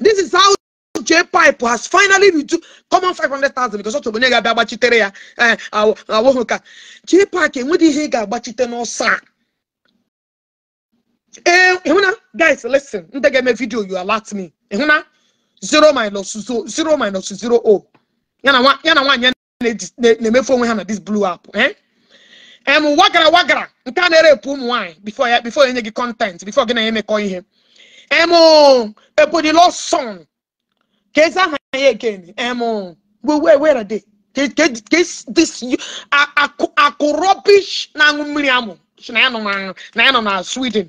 Speaker 1: This is how J Pipe has finally reduced common 500,000 because of you Babachitere. J Park and Woody Higa Bachitano Sa. Eh, eh guys, listen. Ndege me video, you alert me. Ehuna, zero minus zero, zero minus zero oh ya na nwaanyị na-emefu onwe ha na this blew up eh? em wagara wagara nke a na-erepụ ụmụ nwaanyị bifo ya bifo enye gị kọntent bifo gị na ya emekọ ihe em ebonilo son ka ezi aha ya again em were de akụ rubbish na-aṅụ mmiri amụ na ya nọ na sweden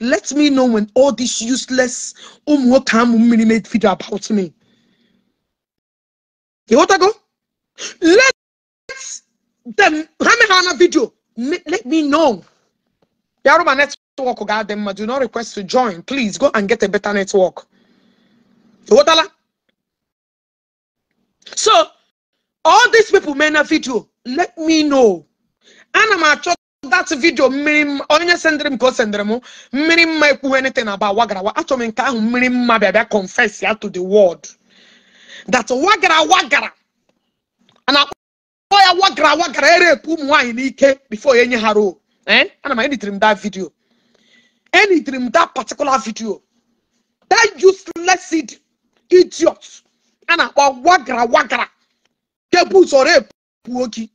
Speaker 1: let me know when all this useless ụmụ nwoke amụ mmiri made video about me you want to go? Let them Ramehana video. Let me know. Yaroma network oh got them. Do not request to join. Please go and get a better network. You want So all these people made a video. Let me know. And I'm that video. Onye only send them. Go send them. mmiri mma ekwu anything about wagara wa achọ m nke ahụ mmiri mma bịa confess ya to the world that wagara wagara and akpọ wagara wagara erepu ụmụ nwaanyị n'ike before any haro, roo eh? ana m editiri m that video editiri m that particular video that useless seed idiot And na wagara wagara Ke buzọ repuo gị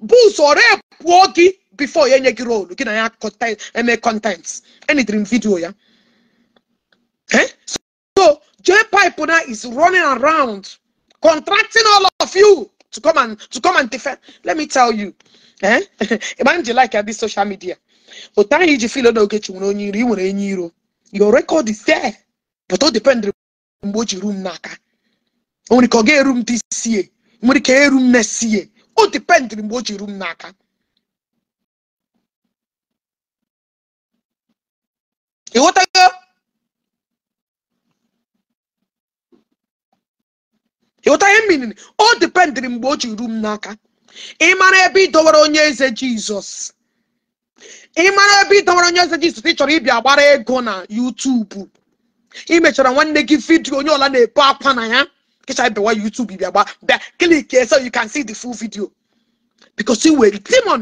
Speaker 1: buzọ repuo gị before any gị looking at content, ya eme content editiri m video ya eh? J Pipe now is running around contracting all of you to come and to come and defend. Let me tell you, eh? Imagine like at this social media. But time you feel no get you Your record is there, but all depends on what room naka. Only can room this year. Only can room next year. All depends on what room naka. You what I go? ịghọta ihe mmiri o dipendịrị mgbe o ji ru m n'aka ịmara ebe ịdọwara onye eze jizọs ịmara ebe ịdọwara onye eze jizọs ị chọrọ ịbịa gbara ego na yutubu ị mechara nwanne gị vidiyo onye ọla na-ebu akwa na ya kịcha bewa yutubu bịa gba bịa klik so you can see the full video because you were demon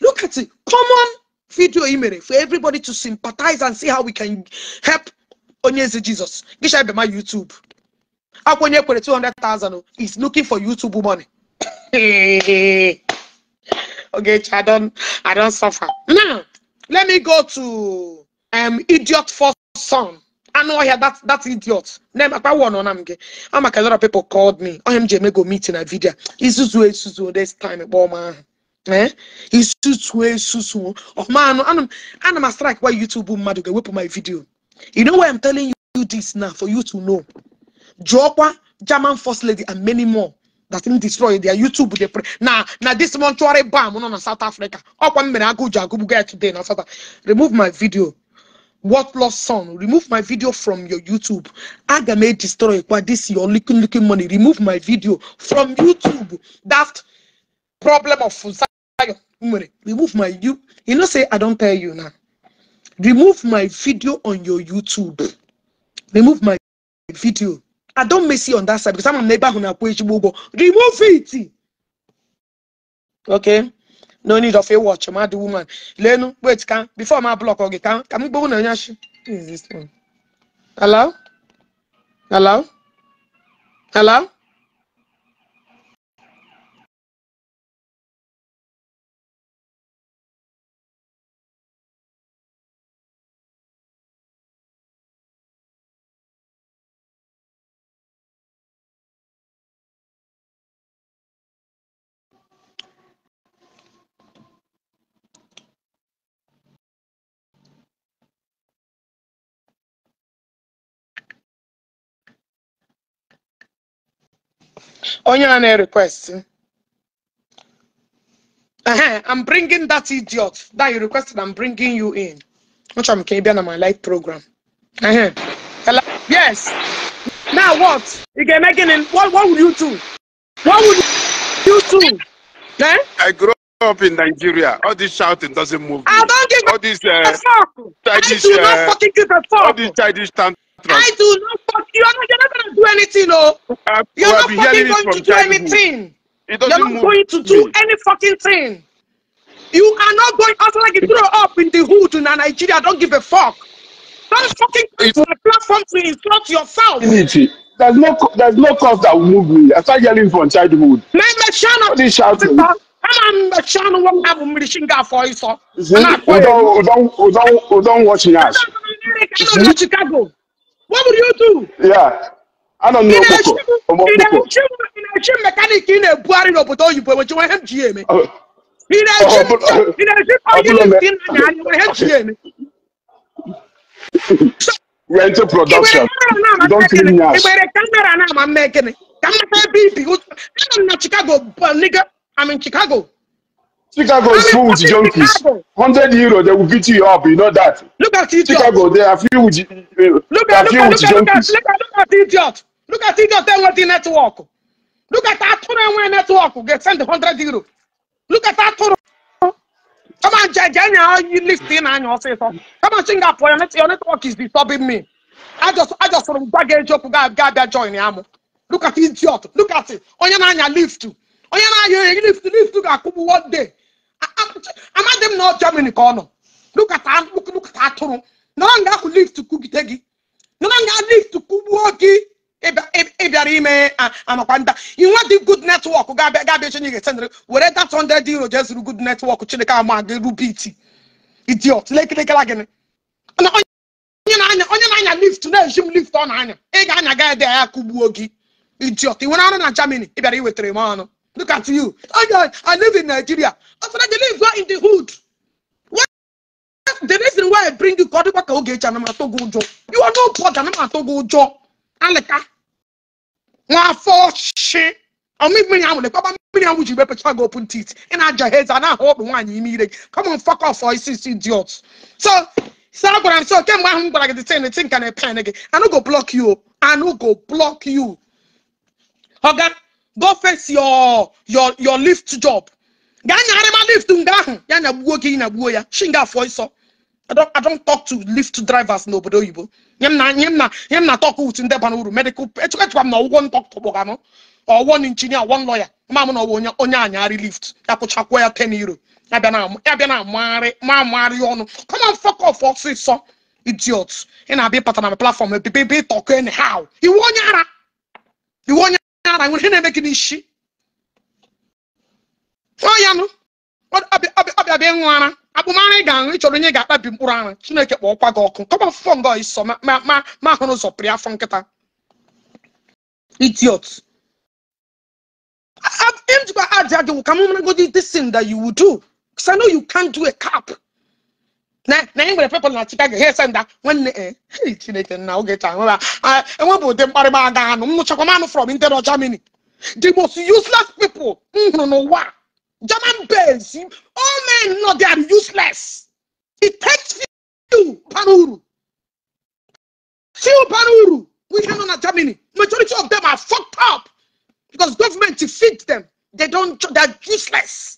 Speaker 1: look at it common video ị mere for everybody to sympathize and see how we can help onye eze jizọs kịcha my yutubu Akwenye kwere 200,000 he's looking for YouTube money. okay, I don't, I don't suffer. Now, let me go to um, idiot first son. I know I had that that idiot. Name I one on am I'm a lot of people called me. I am go meeting a video. Isuzu Isuzu this time at eh? He's Eh? Isuzu Isuzu. Oh man, I'm I'm a strike why YouTube mad go whip my video. You know why I'm telling you this now for you to know. Jokwa, German First Lady, and many more that didn't destroy their YouTube. They pray. Now, now this mortuary bomb on South Africa. Up one minute, I go guy today. Now, South remove my video. What lost son? Remove my video from your YouTube. I may destroy it. this your looking looking money. Remove my video from YouTube. That problem of money. remove my you. You know, say I don't tell you now. Remove my video on your YouTube. Remove my video I don't miss you on that side because I'm a neighbor who Remove it. Okay. No need of a watch, mad woman. Lenu, wait, can before my block okay, can can we go on Is this one? Hello? Hello? Hello? onye a na-request I'm bringing that idiot that you requested. I'm bringing you in. Which I'm can be on my live program. Uh-huh. Hello? Yes. Now what? You can make it in. What, what would you do?
Speaker 4: What would you do? Eh? I grew up in Nigeria. All this shouting doesn't move. Me. I don't give all this, uh, a fuck. Childish, I do not uh, fucking give a fuck. All this childish tantrums I do not fuck you. Are not, you're not going to do anything, no. Uh, you're not fucking going to do
Speaker 1: anything. You're not going to do any fucking thing. You are not going out like you throw up in the hood in Nigeria. Don't give a fuck. Don't fucking use my platform to insult yourself.
Speaker 4: Dignity. There's no there's no cause that will move me. I start yelling from childhood. Let me channel. This shouting.
Speaker 1: I'm a channel one have a machine gun for you, sir.
Speaker 4: Don't don't don't don't watch me. Chicago. What would you do? Yeah. I don't know. Ị na-echi in a na na-ebugharị n'obodo oyibo enwechiwa ihe m ji eme. Ị na-echi onye na anya ihe m ji eme. We're into production. Don't leave me out. Igbere
Speaker 1: kamera na-ama mme gịnị? Ka mmata ebe I'm in Chicago, nigga. I'm in Chicago. Chicago is full with junkies. Chicago.
Speaker 4: 100 euro, they will beat you up. You know that. Look at idiot. Chicago, they are filled with, uh, look at, look at,
Speaker 1: with look junkies. At, look, at, look at idiot. Look at idiot They want the network. Look at Aturo NY network. Get sent 100 euro. Look at Aturo. Come on, Jaganya, you listen and you say something? Come on, Singapore, your network is disturbing me. I just, I just from baggage up, Gabia join Yamu. Look at idiot. Look at it. Onyananya lift. Onyananya lift, lift, lift look at one day. amadị m na Germany ka ọ nọ lukata atụrụ na ọ ga-akwụ lift kwugide gị na ọ ga lift kwugbuo gị ịbịara ime amakwa nda inwe dị good netwọk ga-abịa ga-abịa chinye ga-esendịrị were that 100 euro jee zụrụ good netwọk chineke ama gị rubit idiot lekirikira gịnị na onye na-anya onye na-anya lift na-eji m lift ọ na-anya ị ga-anya ga ede ya kụgbuo gị idiot ị nwere arụ na Germany ị bịara iwetara m ọnụ Look at you. Oh, yeah, I live in Nigeria. After that, they live right in the hood. What? The reason why I bring you God, what can get Janama Togo Jo? You are no I'm poor Janama Togo Jo. Aleka. One for shit. Or make me out. Papa, me out. Would you better try open teeth? And I just heads and I hope one you need it. Come on, fuck off for ICC idiots. So, so what I'm so came one but I get the same? the thing can I panic. I don't go block you. I don't go block you. Okay. go face your your your lift job gaa nyagharịma lift I don't talk to lift drivers n'obodo oyibo talk with medical or one engineer one lawyer Mama no na onya onye lift ya kwụchakwuo ya ten euro ya bịa na ma amagharị ọnụ come on fuck off ọsịsọ idiot ị na-abịa ịpata na platform be be talk anyhow iwu onye ara iwu onye na nwere ihe na-eme gị ọ ya nụ ọbịa bịa ịṅụ ara ị ga-aṅụ ịchọrọ onye ga-akpabi mkpụrụ ara chineke kpọọkwa gị ọkụ kọba fụfọ nga iso ma hụrụ ụzọ pịrị afọ nkịta idiot aja ka a cap na na anyị nwere pepụl na chicago ha ese when nwanne e eh, hei chineke na oge taa nweba enwebụ ụdị mkparịba aga anụ m nụchakwa m anụ from internal germany the most useless people no, no, what? german base all men know they are
Speaker 4: useless it takes few panuru, few
Speaker 1: panuru. uru ihe nọ na germany majority of them are fucked up because government to feed them they don't they are useless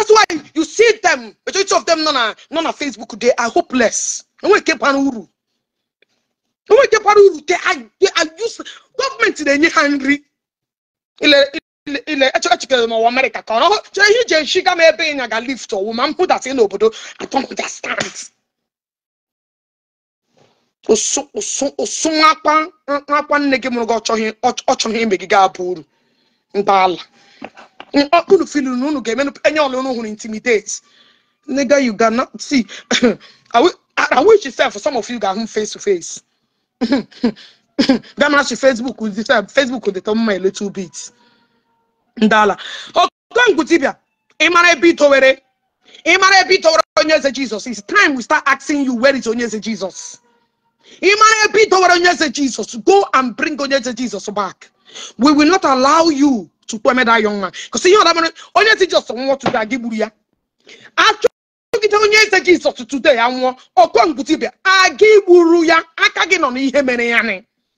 Speaker 1: that's why you see them majority of them nọ they are uru nke bara na-enye ha nri ile n'ụwa amerịka ka ọ chere ihe ije nshiga m ịnya ga lift ọwụ ma mpụdasị n'obodo atọmụdastand ụsụ nwakwa nne gị mụrụ gị ọchọghị ime gị ga-abụ uru mgbaala unu not na unu ga-eme enye ọla unu hụrụ intimidates, nigga you cannot see I I wish for some of you ga-ahụ face to face gama she Facebook with the uh, Facebook with the top my little bit ndala okongwu oh, dibia ị mara ebe itowere ị mara ebe itowere onye eze Jesus it's time we start asking you where is onye eze Jesus ị mara ebe itowere onye eze Jesus go and bring onye eze Jesus back we will not allow you to eme that young man because ihe ọdaba onye ti jọs nwụọ tutu a gị gburu ya achọgide onye eze gị sọtụ tutu ya nwụọ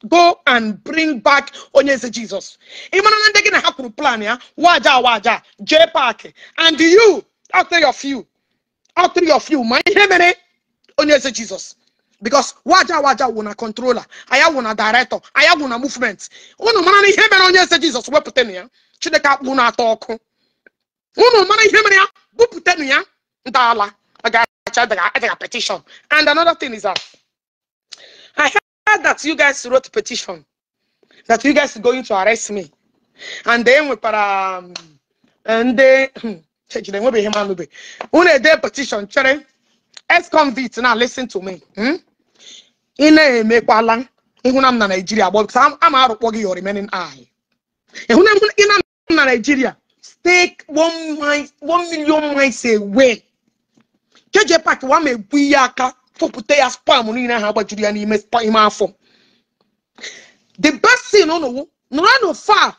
Speaker 1: go and bring back onye jesus ị mara na ndị gị na ha plan ya waja waja jee Park. and you after your few, after your few, my you ma jesus because waja waja wụ na controller anya wụ na director anya wụ na movement unu mara na ihe mere onye eze jizọs wepụtanụ ya chineke akpụ na-atọ ọkụ unu mara ihe mere ya bupụtanụ ya ntọala agacha petition and another thing is that i heard that you guys wrote petition that you guys going to arrest me and then we nwekwara um, ndị hmm, chejide enwebeghị m anụbe unu ede petition chere ex convict now listen to me hmm? ị na-emekwala ịhụna m na naijiria gbọ bikos ama arụkpọ gị your remaining eye ịhụna ị na m na naijiria stay one mile one million miles away keje pak wama ma ebu ihe aka fopụta ya spam niile ha gbajuru ya n'ime ime afọ the best thing unu nọrọ far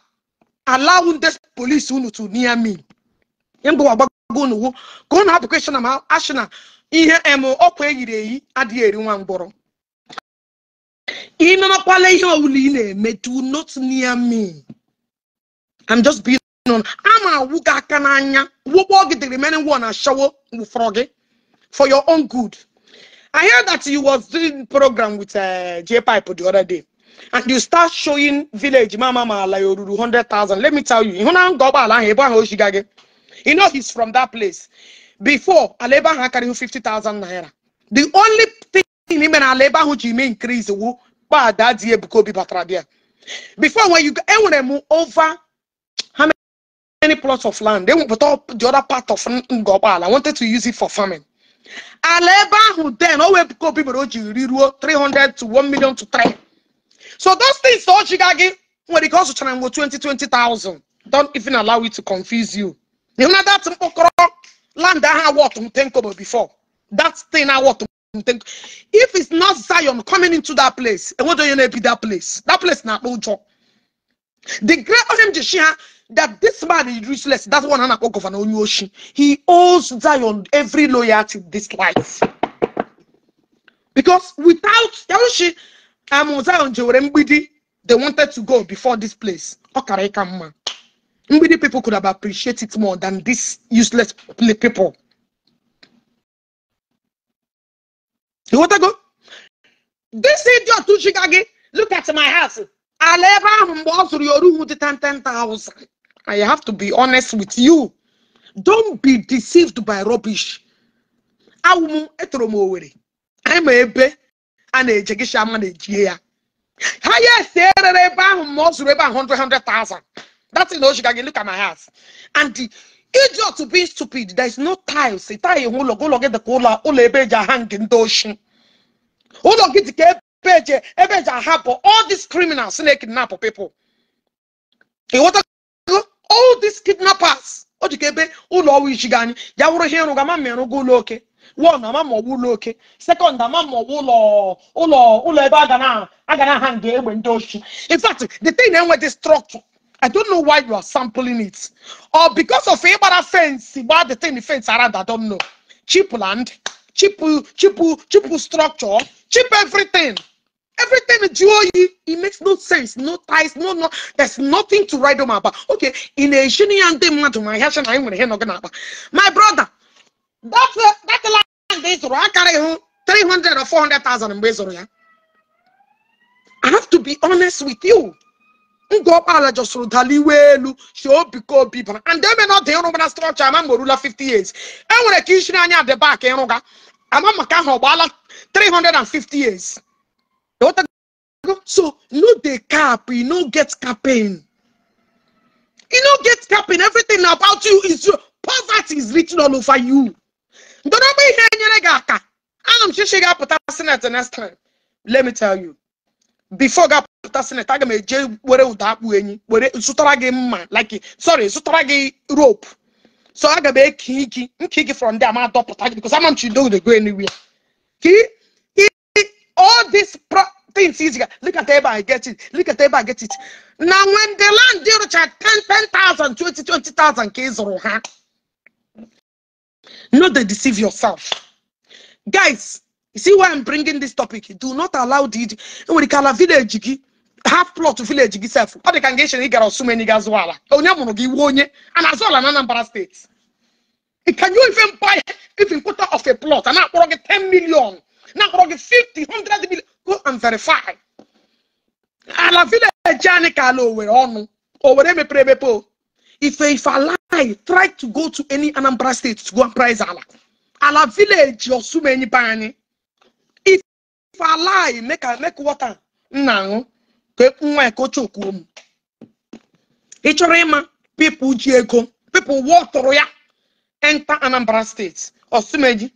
Speaker 1: alaw this police unu to near me mgbe agbago unu ka ụnụ hapụ kweshọn ma ashina ihe em ọkwa eyiri eyi adịghị eri nwa mgbọrọ ị nọnakwala ihe ọbụla ị na-eme do not near me I'm just being on a na-awụ gị aka n'anya the remaining one ashawo wụfọrọ froggy eh? for your own good I heard that you was doing program with uh, J-Pipe the other day and you start showing village mama ma ala 100,000 let me tell you ịhụ na nga ụgbọala ahụ ebe ahụ o you know he's from that place before ala ebe carry 50,000 naira the only thing ime na ala ebe who ji ime increase wu before that year because be batrabia. Before when you eh, move over how many plots of land, they will put up the other part of Ngobal. I wanted to use it for farming. Aleba who then always because people oji 300 to 1 million to 3. So those things all you got when it comes to Chanango 20, 20,000. Don't even allow it to confuse you. You know that land that I worked before. That thing I want to if it's not Zion coming into that place, and what do you know be that place? That place not The great Ohem that this man is useless. That's one hand of an Onyoshi. He owes Zion every loyalty this life. Because without Yaroshi, I'm um, Zion They wanted to go before this place. come, Many people could have appreciated it more than this useless people. ịghọtago this idiot chiga gị look at my house ala ebe ahụ mgbe ọ zụrụ ya oruhu 10,000 I have to be honest with you don't be deceived by rubbish awụ m etoro ma ebe a na-eje na-ejie ya ha ya si erere ebe ahụ ma ọ zụrụ ebe that's in look at my house and idiot be stupid there is no tiles tile nwe ụlọ gị ụlọ gị dị ka ụlọ ụlọ ebe eji aha nke ndị oshi ụlọ gị dị ka ebe eji ebe all these criminals na-ekidnap people ịghọtago all these kidnappers o ji ka ebe ụlọ ọwa ichi gị ya wụrụ ihe ịrụ gama ma ịrụgo ụlọ oke one ama ma ọgwụ ụlọ oke sekọnd ama ma ọgwụ ụlọ ụlọ ụlọ ebe a ga na aha nga egbe ndị oshi in fact the thing na-enwe enweghị structure I don't know why you are sampling it. Or because of a bad fence, the thing the fence around, I don't know. Cheap land, cheap, cheap, cheap structure, cheap everything. Everything you it makes no sense, no ties, no no. There's nothing to write my about. Okay, in a shiny and my hash I'm gonna hear My brother, that's the that land is I carry three hundred or four hundred thousand in Bezor. I have to be honest with you ngọkpala just rụdala iwe elu si obi ka obi bara and eme na not dị ịrụgba na I'm mgbe orula 50 years I ka to anya adị bak ịrụga ama maka ahụ ọ gbaala 350 years so no dey cap you no get capping you no get capping everything about you is your poverty is written all over you Don't be ndọrọgba ihe nyere gị aka ana m chichi ga-apụta senate next time let me tell you before God. pụta sinetaga m eje were ụda akpụ enyi were zụtara gị mma like sorry zụtara gị rope so aga m eki gị from there ma dọpụta gị because ama m chi go anywhere ki all these things is look at ebe get it look at ebe get it now when the land rụcha 10 10,000 20 20,000 ka ị zụrụ ha no deceive yourself guys you see why I'm bringing this topic do not allow the nwere ike village half plot to village itself, sef ọ dị ka nga echere ị gara ọsụmeni ga zụọ ala onye mụrụ gị wuo onye a na-azụ ala na anambra steeti can you even buy even quarter of a plot And na-akpọrọ 10 Now na-akpọrọ gị 50 100 million go and verify ala village anyị we ala owere ọnụ owere emepere emepe if if lie try to go to any anambra state to go and price ala ala village so many bani. if lie make make water now. nwa ekochukwu m ị chọrọ ịma pipụl ji ego wụọ tụrụ ya enta e e e anambra steeti osumeji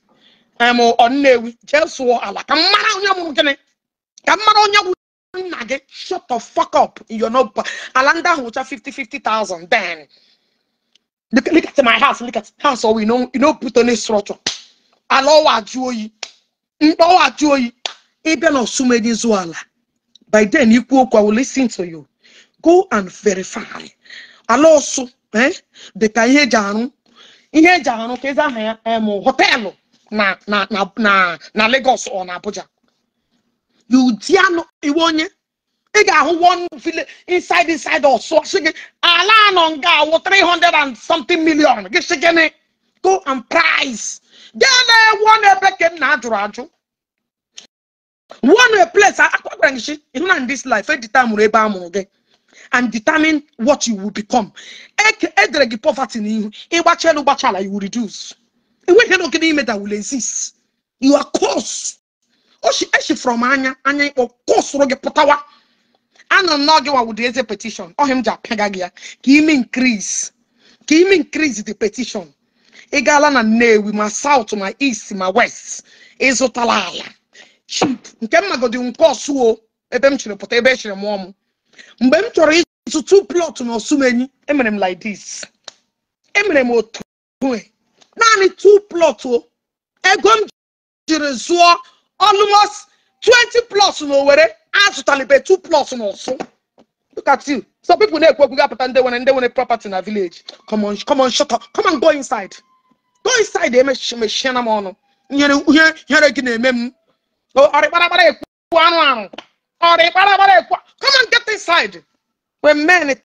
Speaker 1: ọnnewi jee sụọ ala ka mmara onye mụrụ gịnị ka mmara onye gwụ nna gị shut the fuck up yonoba ala ndị ahụ ncha 50 50,000 then look, look at my house look at house oh, owi you no put on structure ala ọwa ajụ oyi mkpa ọwa ajụ oyi ịbịa na osumeji zụọ ala by then ikwu okwu I will listen to you go and verify ala eh dịka ihe eji ihe eji arụ ka eze aha ya họteelụ na na na na Lagos or na Abuja you iwe onye ị ga-ahụ one village inside inside ọsụ sị gị ala anọ nga awụ 300 and something million gị sị go and price gị na-ewu n'ebe ka m na-ajụrụ ajụ one place agwara gị shi ihu na this life editamụrụ ebe a mụrụ gị and determine what you will become edere gị poverty n'ihu ịgbacha elu gbachala you will reduce enweghị n'oge n'ime that will exist you are close oshi oh, eshi eh, from anya anya ịkpọ kụsụrụ gị pụtawa anọ n'oge wa wụdị eze petition ọhịa oh, m ji apịaga gị ya ka ime increase ka ime increase the petition ị gaala na Nnewi ma south ma east ma west ịzụtala ala chip nke mmagodi nke o! ebe m chiri pụta ebe echiri mụọ ọmụ. mgbe m chọrọ ịzụ two plot na osumenyi emere m like this emere m otu naanị two plot o ego m jiri zụọ almost 20 plot na owere azụtalibe two plot na ọsụ look at you some na-ekwu okwu gapụta ndị nwere ndị nwere property na village come shọtọ, come on shut go inside go inside emechina m ọnụ nyere gị na-eme m Oh, Come and get inside. When men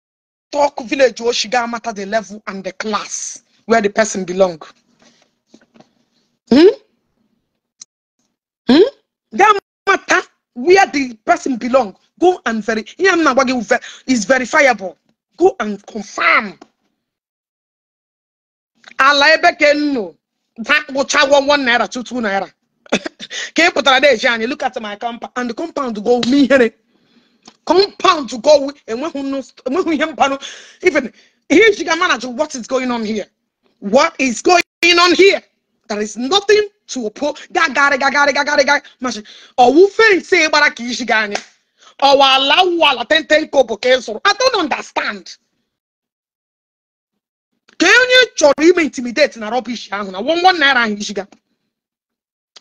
Speaker 1: talk village oh, got matter the level and the class where the person belong. Hmm? Hmm? That matter where the person belong. Go and verify. is verifiable. Go and confirm. Ala ebe ka nnu. Dakpụcha one naira two two naira. Can ị pụtara na eji anyị look at my compound and the compound to go with me honey. compound to go with and who enweghị ihe mpanụ even here. She can manage what is going on here what is going on here there is nothing to oppose gagari gagari gagari gagari machi ọwụ fensi gbara ka isi gị anyị ọwa ala wụ ala tenten kobo ka ị zụrụ i don't understand Can you try to intimidate na rọbish I na nwa nwa naira ahụ isiga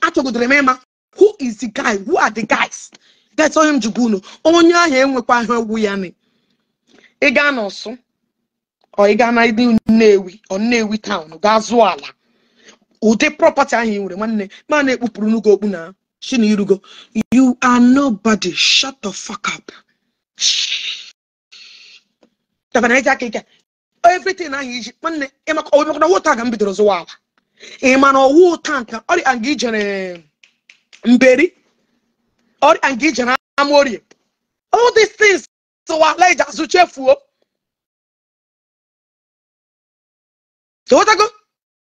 Speaker 1: achọgodoro m ịma who is the guy who are the guys that's onye m jikwa unu onye ahụ enwekwa ahụ egwu ya ni ị gaa n'ọsụ ọ ị gaa na ndị nnewi ọ nnewi taụn gaa zụọ ala ụdị property ahụ ị nwere nwanne ma na-ekpupụrụ n'ugo okpu na shi na irugo you are nobody shut the fuck up aka ike everything ahụ iji nwanne ịmaka ọ maka na wota ga m bidoro zụwa ala ị ma na ọwụ tanka ọrịa nga ijere mberi ọrịa nga ijere amorie all these things wa leje azụ chefuo totago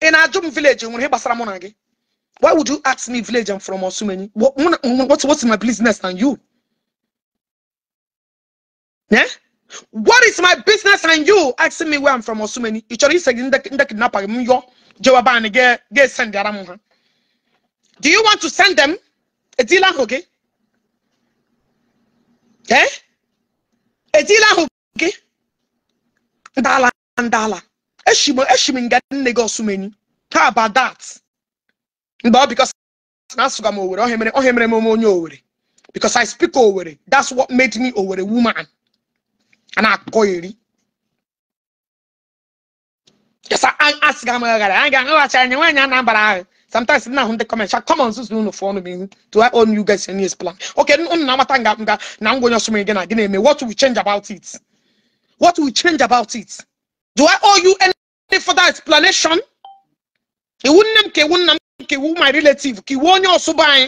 Speaker 1: ị na-ajụ m vileji nwere ihe gbasara mụ na gị why would you ask me village and from osumenyi what's, what's my business and you yeah? what is my business and you asking me where i'm from osumenyi ị chọrọ ise gị ndị kidnapa m yọọ Joaban gị esendara m ha do you want to send them etila ahụ gị ee deal ahụ gị ndala ndala eshim e nga nne gị osumeni how about that mgbe because bikos na asụga m owere ohe mere ohe mere m onye owere because I speak owere that's what made me owere woman and na-akọ iri asịga m aghara anyị ga-aghọghachi anyị nwaanyị Anambra ahụ sometimes nna ahụ ndị kọmentị come on zuzu unu fọnụ m ihu to I own you guys any plan okay unu na-amata nga nga na ngwa onye ọsụm gị na gị eme what will change about it what will change about it do I owe you any further explanation iwu nne m ka iwu nna m ka iwu my relative ka iwu onye ọsụba anyị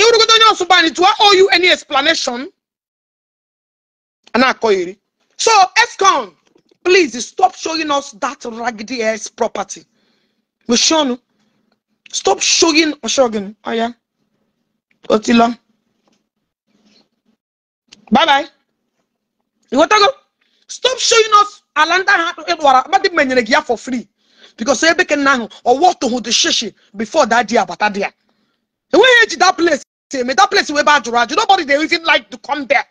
Speaker 1: iwurugodo onye ọsụba anyị do I owe you any explanation ana na so escon Please stop showing us that raggedy ass property. Oshonu, stop showing Oshogun. Oh yeah. long. Bye bye. You go. stop showing us Alanda Edwara. Badi menyere giya for free. Because ebe can nahu or what to the shishi before that dia but that dia. The way that place, that place way bad to Nobody they even like to come there.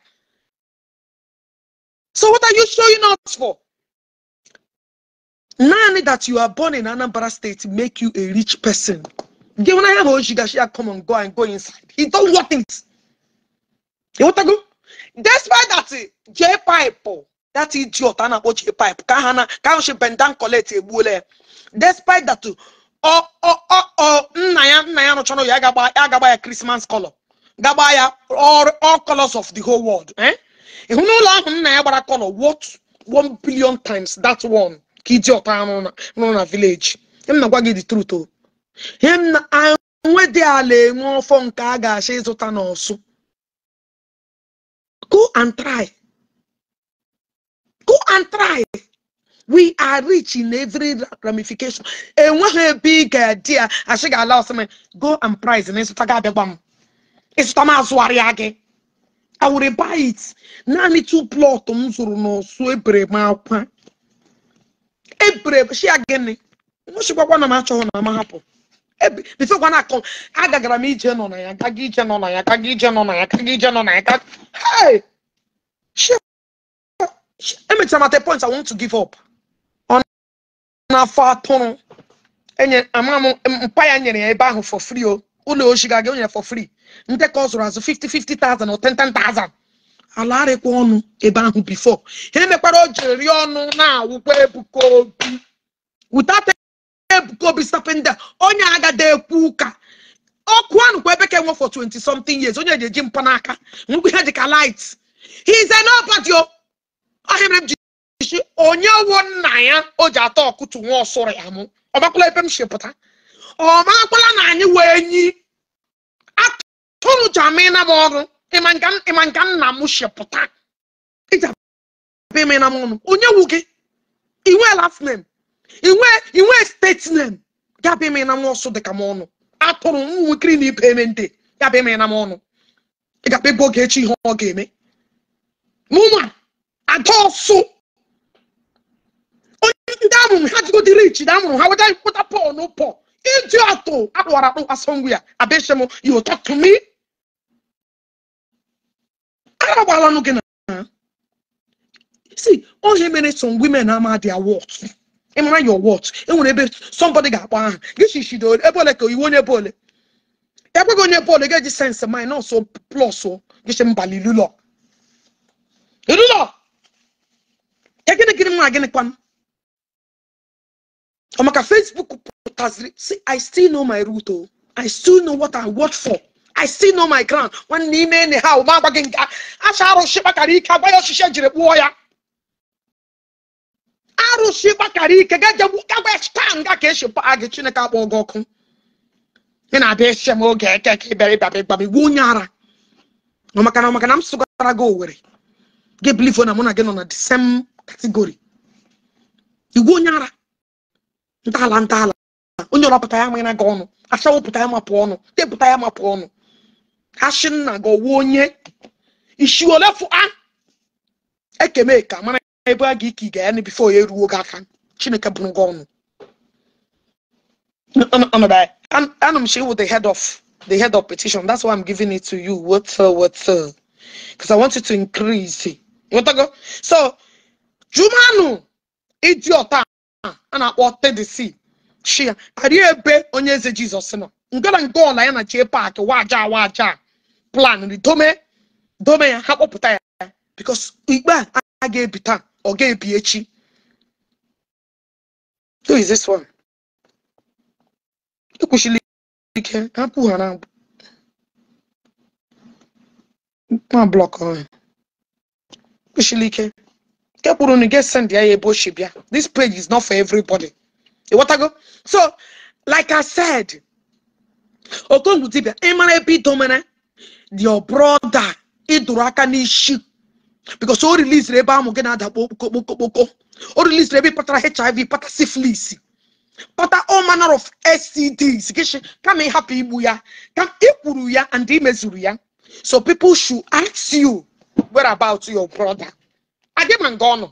Speaker 1: So what are you showing us for? None that you are born in anambra state make you a rich person gị nwere anya ma o jigashia come on, go and go inside he don't want it You want to go? despite that eh, j pipe oh, that idiot a na-akpọ j pipe ka ha na ka ahụ shi bendan colet egbuola ya eh. despite that oh oh oh, oh, oh nna ya rụchara ya agagba ya Christmas color Gabaya all all colors of the whole world Eh? n'ụlọ ahụ nna ya gbara color what one billion times that one na m na gị the truth o oh. him na anwe dị ala enwe ọfọ nke a ga-achọ ịzụta n'ọsụ go and try go and try we are rich in every ramification enweghị ebe ị ga-adị I achị ga-ala ọsịmị go and price na ịzụta gị abịagba m ịzụta m azụgharịa gị I will buy it naanị two plot m zụrụ n'ọsụ ebere m akwa eburesia gịnị nwụchikwa na m achọghị na m hapụ bifekwa na akọ agagara m ije nọ na ya gaga ije nọ na ya gaga ije nọ na ya gaga ije nọ na ya gaga emechara mata point i want to give up ọ na-afọ atụrụ enye ama m mpa ya nyere ya ebe ahụ for free o ụlọ oshi gaga onye for free ndekọ ka ọ zụrụ azụ 50 50,000 or 10,000 ala arịkwa ọnụ ebe ahụ bifo ha emekwara o jiri rie ọnụ na-awụkwa ebukobi Obi wụtate Ebuka Obi sapenda onye agada ekwu ụka ọkụ ahụ kwa ebe ka enwe for 20 something years onye ji eji n'aka ngwa ihe dịka light he is an nobody oh. ọhịa mere m ji isi onye wo nna ya o ji atọ ọkụtụ nwa ọsụrụ ya mụ ọ ọmakwala ebe m si pụta ọmakwala na anyị wee nyi atụrụ jamina m ọrụ ịma nka nna m shepụta iji abịa eme na m ọnụ onye wu gị inwe last name inwe inwe steeti name ya bịa eme na m dịka m ọnụ atụrụ ụmụnwekiri na ibe eme ndị ya bịa eme na m ọnụ ị ga-abịa ebe oge echi ihe ọ ga-eme n'ụmụ ada ọsụ ndị amụrụ ha jigo dịrị ichi amụrụ ha weta pọl na iji atụ akpụwara akpụ asọngwụ ya abịa shem you talk to me agbagbala ọnụ gị na see onye mere some women ama their worth ịmara your worth enwere ebe somebody ga-akpọ aha gị chichido ebe ole ka iwu onye bole ole ekweghị onye bụ ga-eji sense mind nọọsụ plus gịchi mbali lulọ lulọ ya gịnị gịnị mma gịnị kwanụ ọ maka Facebook pụtaziri see I still know my route o I still know what I work for i still know my ground nwanne ime nne ha ụma gị acha arụsị gbakara ike agwa ya jiri kpụọ ya arụsị gbakara ike gajegbu gagwa taa nga ka esi paa gị chineke akpọ gị ọkụ na-abịa m oge eke ka ịbịara the same category onye ya ma ọnụ acha wepụta ya ọnụ asị na go ọwụ ishi isi ole fụa ekeme ka mara ebe a ga ga ya ni before ya eruo gị aka chineke bụrụ gị ọnụ I'm share with the head of the head of petition that's why i'm giving it to you what uh, what uh, because i want you to increase it so jumanu idiot I na the sea. She. Are you a onye eze Jesus? nọ ngara ngola ọla ya na wa paaki waja waja plan the dome dome ya ha kpọpụta ya because igbe a ga-ebi taa ọ ga-ebi echi who is this one ekwuchila ike hapụ ha na ma blọk ọhụrụ ekwuchila ike nke kpụrụ na get send ya ya ebe ochi bịa this page is not for everybody ịghọtago so like i said okongwu dibia ịmara ebe idomere your brother ịdụrụ aka n'isi because o rilisiri ebe ahụ boko boko boko. All release ebe ịpatara hiv pata syphilis pata all manner of stds gịshi kama happy igbu ya ka ịkwuru ya and imezuru ya so people should ask you where about your brother agịma nga ọ nọ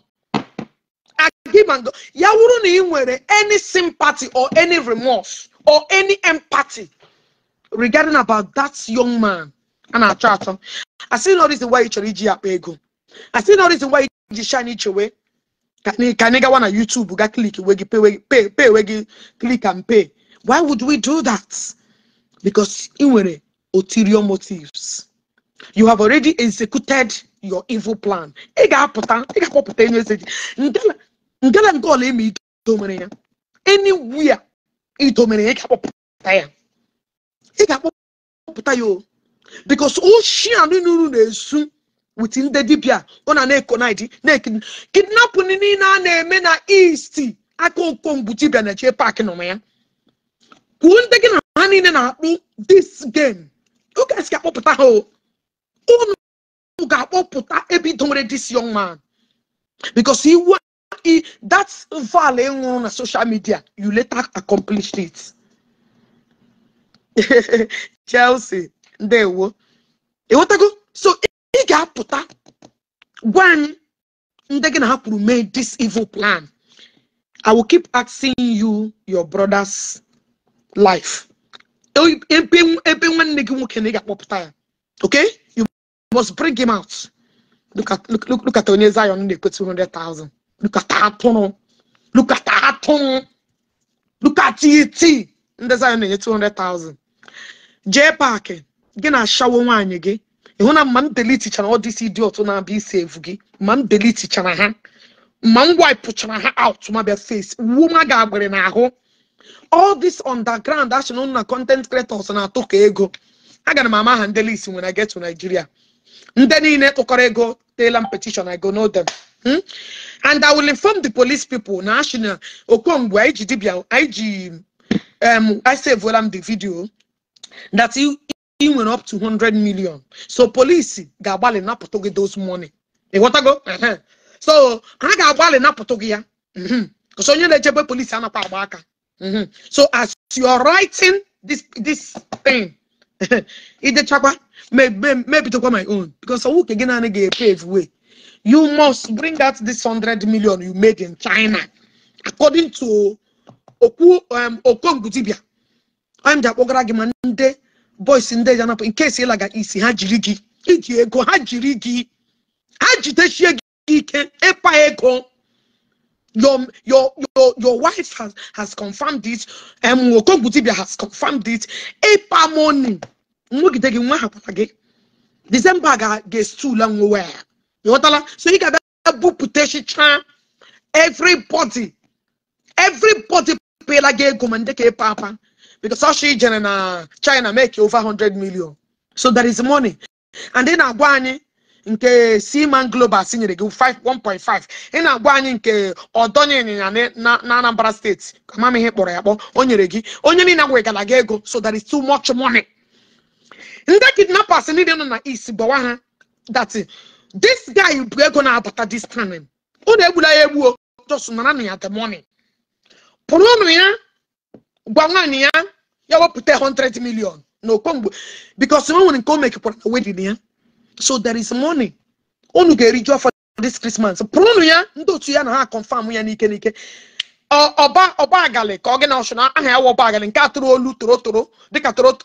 Speaker 1: agịma nga ya wụrụ na any sympathy or any remorse or any empathy regarding about that young man a na-achọ achọ asị na reason why you should iji ya akpa ego asị na reason why iji shine iche wee Can anyị gawa na YouTube ga click we gị pay we gị click and pay why would we do that because ị nwere ulterior motives you have already executed your evil plan ị ga-apụta ị ga-akpọpụta enye eze gị ngala nke ọla eme idomere ya anywhere idomere ya ị ga-akpọpụta because oshi anụnụrụ na-esu wit ndị dibịa ọ na na-ekonid na-ekiri kidnapin niile a na-eme na isti aka okomgbu dibịa na-eche paakị nọ ya kwuo ndị gị na ha niile na-akpụ dis game guys esi akpọpụta ha unu ga-akpọpụta ebido nwere dis young man because ị e na social media you later accomplished it Chelsea ndewo ịghọtago so ị ga-apụta gwa anyị ndị gị na ha kwuru mee this evil plan i will keep asking you your brother's life ebe ebe nwanne gị nwoke na ị ga-akpọpụta ya okay you must bring him out look at look look look at onye zion na-ekwe 200,000 look at atụrụ look at atụrụ look at it ndị zion na-enye 200,000 jee paakị gị na-ashawo nwaanyị gị ịhụ na ma m delitichara ọdịsi dị otu na-abịa isi evu gị ma m delitichara ha ma m waipụchara ha out ma bịa face wuma ga-agbịrị n'ahụ all this underground action na content creators na-atụ ka ego agara m ama ha ndị list nwere I get to Nigeria ndị niile tụkọrọ ego teela m petition I go know them hmm? and I will inform the police people na ashina okwongwu anyị ji dibia iji ji um I savuola m the video that ị up to 100 million so police gabale na napụtụ those money go? Uh-huh. so ha ga-agbalị napụtụ gị ya mm-hmm. because onye na-echebe polisi anakwa agba aka mm-hmm. so as you are writing this this thing talk on my own because nwoke get naani naanị ga-epave way you must bring out this 100 million you made in China according to Oku um, okongudibia anyị I'm the ma bọịsị ndị eji anapụ nke si ịlaga isi ha how gị iji ego ha how gị ha jidechie gị ike ịkpa ego your your your your wife has has confirmed it um Okonkwo-Dibia has confirmed it ịkpa money nwegide gị nwa ha kwara gị December ga-estula nwe ya ịghọtala so a book ga-abịa bupụtachicha everybody everybody pay gị ego ma ndị ka because ọchị jere na china make over 100 million so there is money and ị na-agwa anyị nke Seaman Global si nyere gị 1.5 ị na-agwa anyị nke ọdọnye ịnyịnya na Anambra steeti amam ihe kpọrọ ya kpọ o nyere gị onye niile wegara gị ego so there is too much money ndị kidnappers niile nọ na east gbawa ha that this guy bụ ego na-abata this time ụlọ egbula ya egbuo just nara na ya the money pụrụ ụnụ ya gwa nwaanyị ya ya 100 million No mgbe because someone nwere nke make mekekwara na wedin so there is money unu ga-eriju for this Christmas pụrụnụ ya ndị otu ya na ha confam ya n'ike n'ike ọba ọbagali ka ọ gị na ọchụ na aha ah, ya wa ọbagali nke a tụrụ olu toro toro dịka toro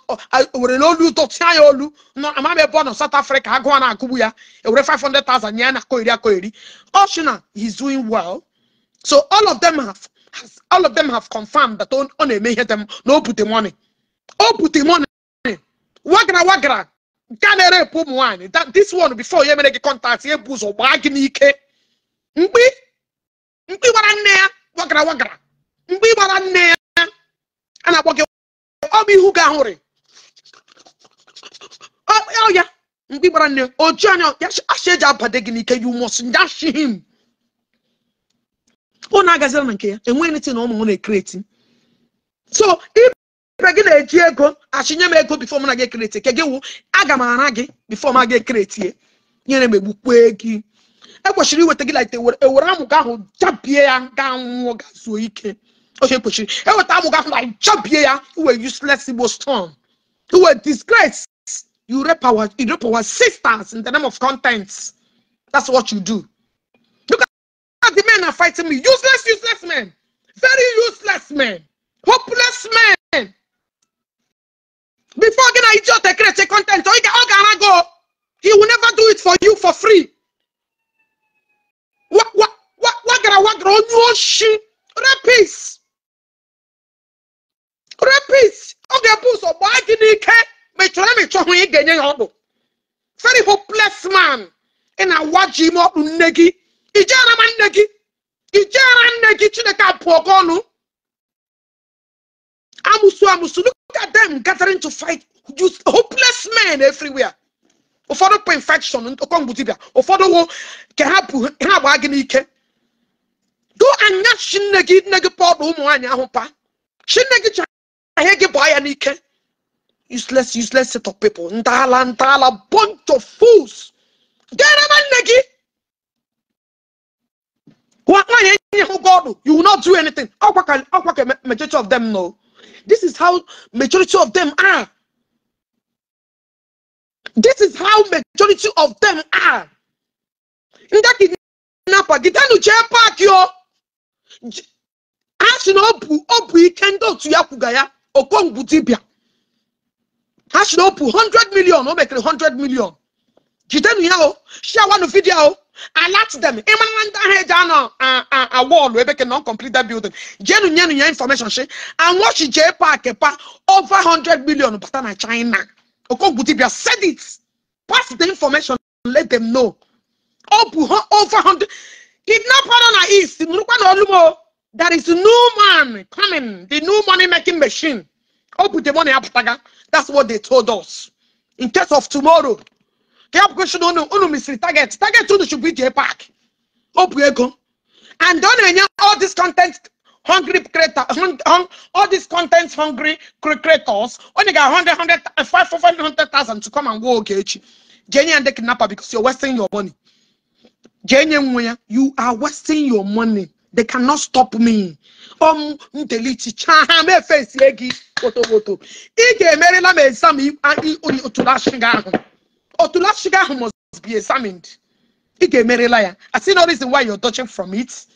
Speaker 1: were n'olu dọtịa ya olu amam ebe ọ South Africa agụwa na agụgbu ya 500,000 nye ya na koeri akoeri ọchụ he's doing well so all of them have as all of them have confirmed that on on eme ihe dem um, na o bute money put the money oh, wagra wagra nke a na-ere epu this one before you make gị contact ya bụ or gbaa gị n'ike mkpi mkpi gbara wagra wagra mkpi gbara nne ya a na Obi gị ọbụ ihu gị ahụrị ọ ya mkpi gbara nne ya oji oh, oh, anya you must dash him unu agazila na nke ya enweghị niti na ụmụ m na-ekreti so ibe gị na-eji ego achịnye m ego bifọ m na gị ekreti ke gị wụ aga m ara gị bifọ m aga ekreti nyere m egbukwe gị ekwesịrị iweta gị laite ewere amụga ahụ jabie ya ga nwụọ gazuo ike oche ekwesịrị eweta amụga ahụ na jabie ya iwe useless igbo storm iwe disgrace you rape our, you rape our sisters in the name of content that's what you do That's the men are fighting me. Useless, useless men. Very useless men. Hopeless men. Before again, I just create a content. So he can go. He will never do it for you for free. What what what what gonna what gonna
Speaker 4: no shit? Rapist. Rapist.
Speaker 1: Okay, push or why did he care? Me try me try me again. Very hopeless man. And I watch him up, Negi. ijera ma nne gị ijera nne gị chineke apụọ gị ọnụ amusu amusu look at them gathering to fight just hopeless men everywhere ụfọdụ pa infection nkọmgbu dibia ụfọdụ nwoke ka ha bụ ha gbaa gị n'ike do anya chinne gị nne gị pọdụ ụmụ nwaanyị ahụ pa chinne gị ji ahịa gị gbaa ya n'ike useless useless set of people ndaala ndaala bunch of fools gara nne gị God, you will not do anything. Majority of them know. This is how majority of them are. This is how majority of them are. In that kidnapper, get down to chair park yo. Ashi no opu can ikendo to ya kugaya okong butibia. Ashi no opu 100 million, no make 100 million. Get down here, share one video alert them ịmara ndị ahụ eji anọ awọlụ ebe ke non completed building jenu nyenu ya information shi anwọchi jee paaki Park? over 100 million bata na china okogbu dibia said it pass the information let them know ọ uh, over 100 If na east nụrụkwa olumo there is new man coming the new money making machine ọ bụ the money apụtaga that's what they told us in case of tomorrow ka ya bụkwasị na unu unu target target unu should be the park opu ego and don't na-enye all this content hungry creator all these content hungry creators only got 100 500,000 to come and go okay Jenny and the kidnapper because you're wasting your money Jenny you are wasting your money they cannot stop me um delete chahame face yegi photo photo ike emerela m exam to that to Otula sugar must be examined. Ị ga-emerela ya. I see no reason why you're touching from it.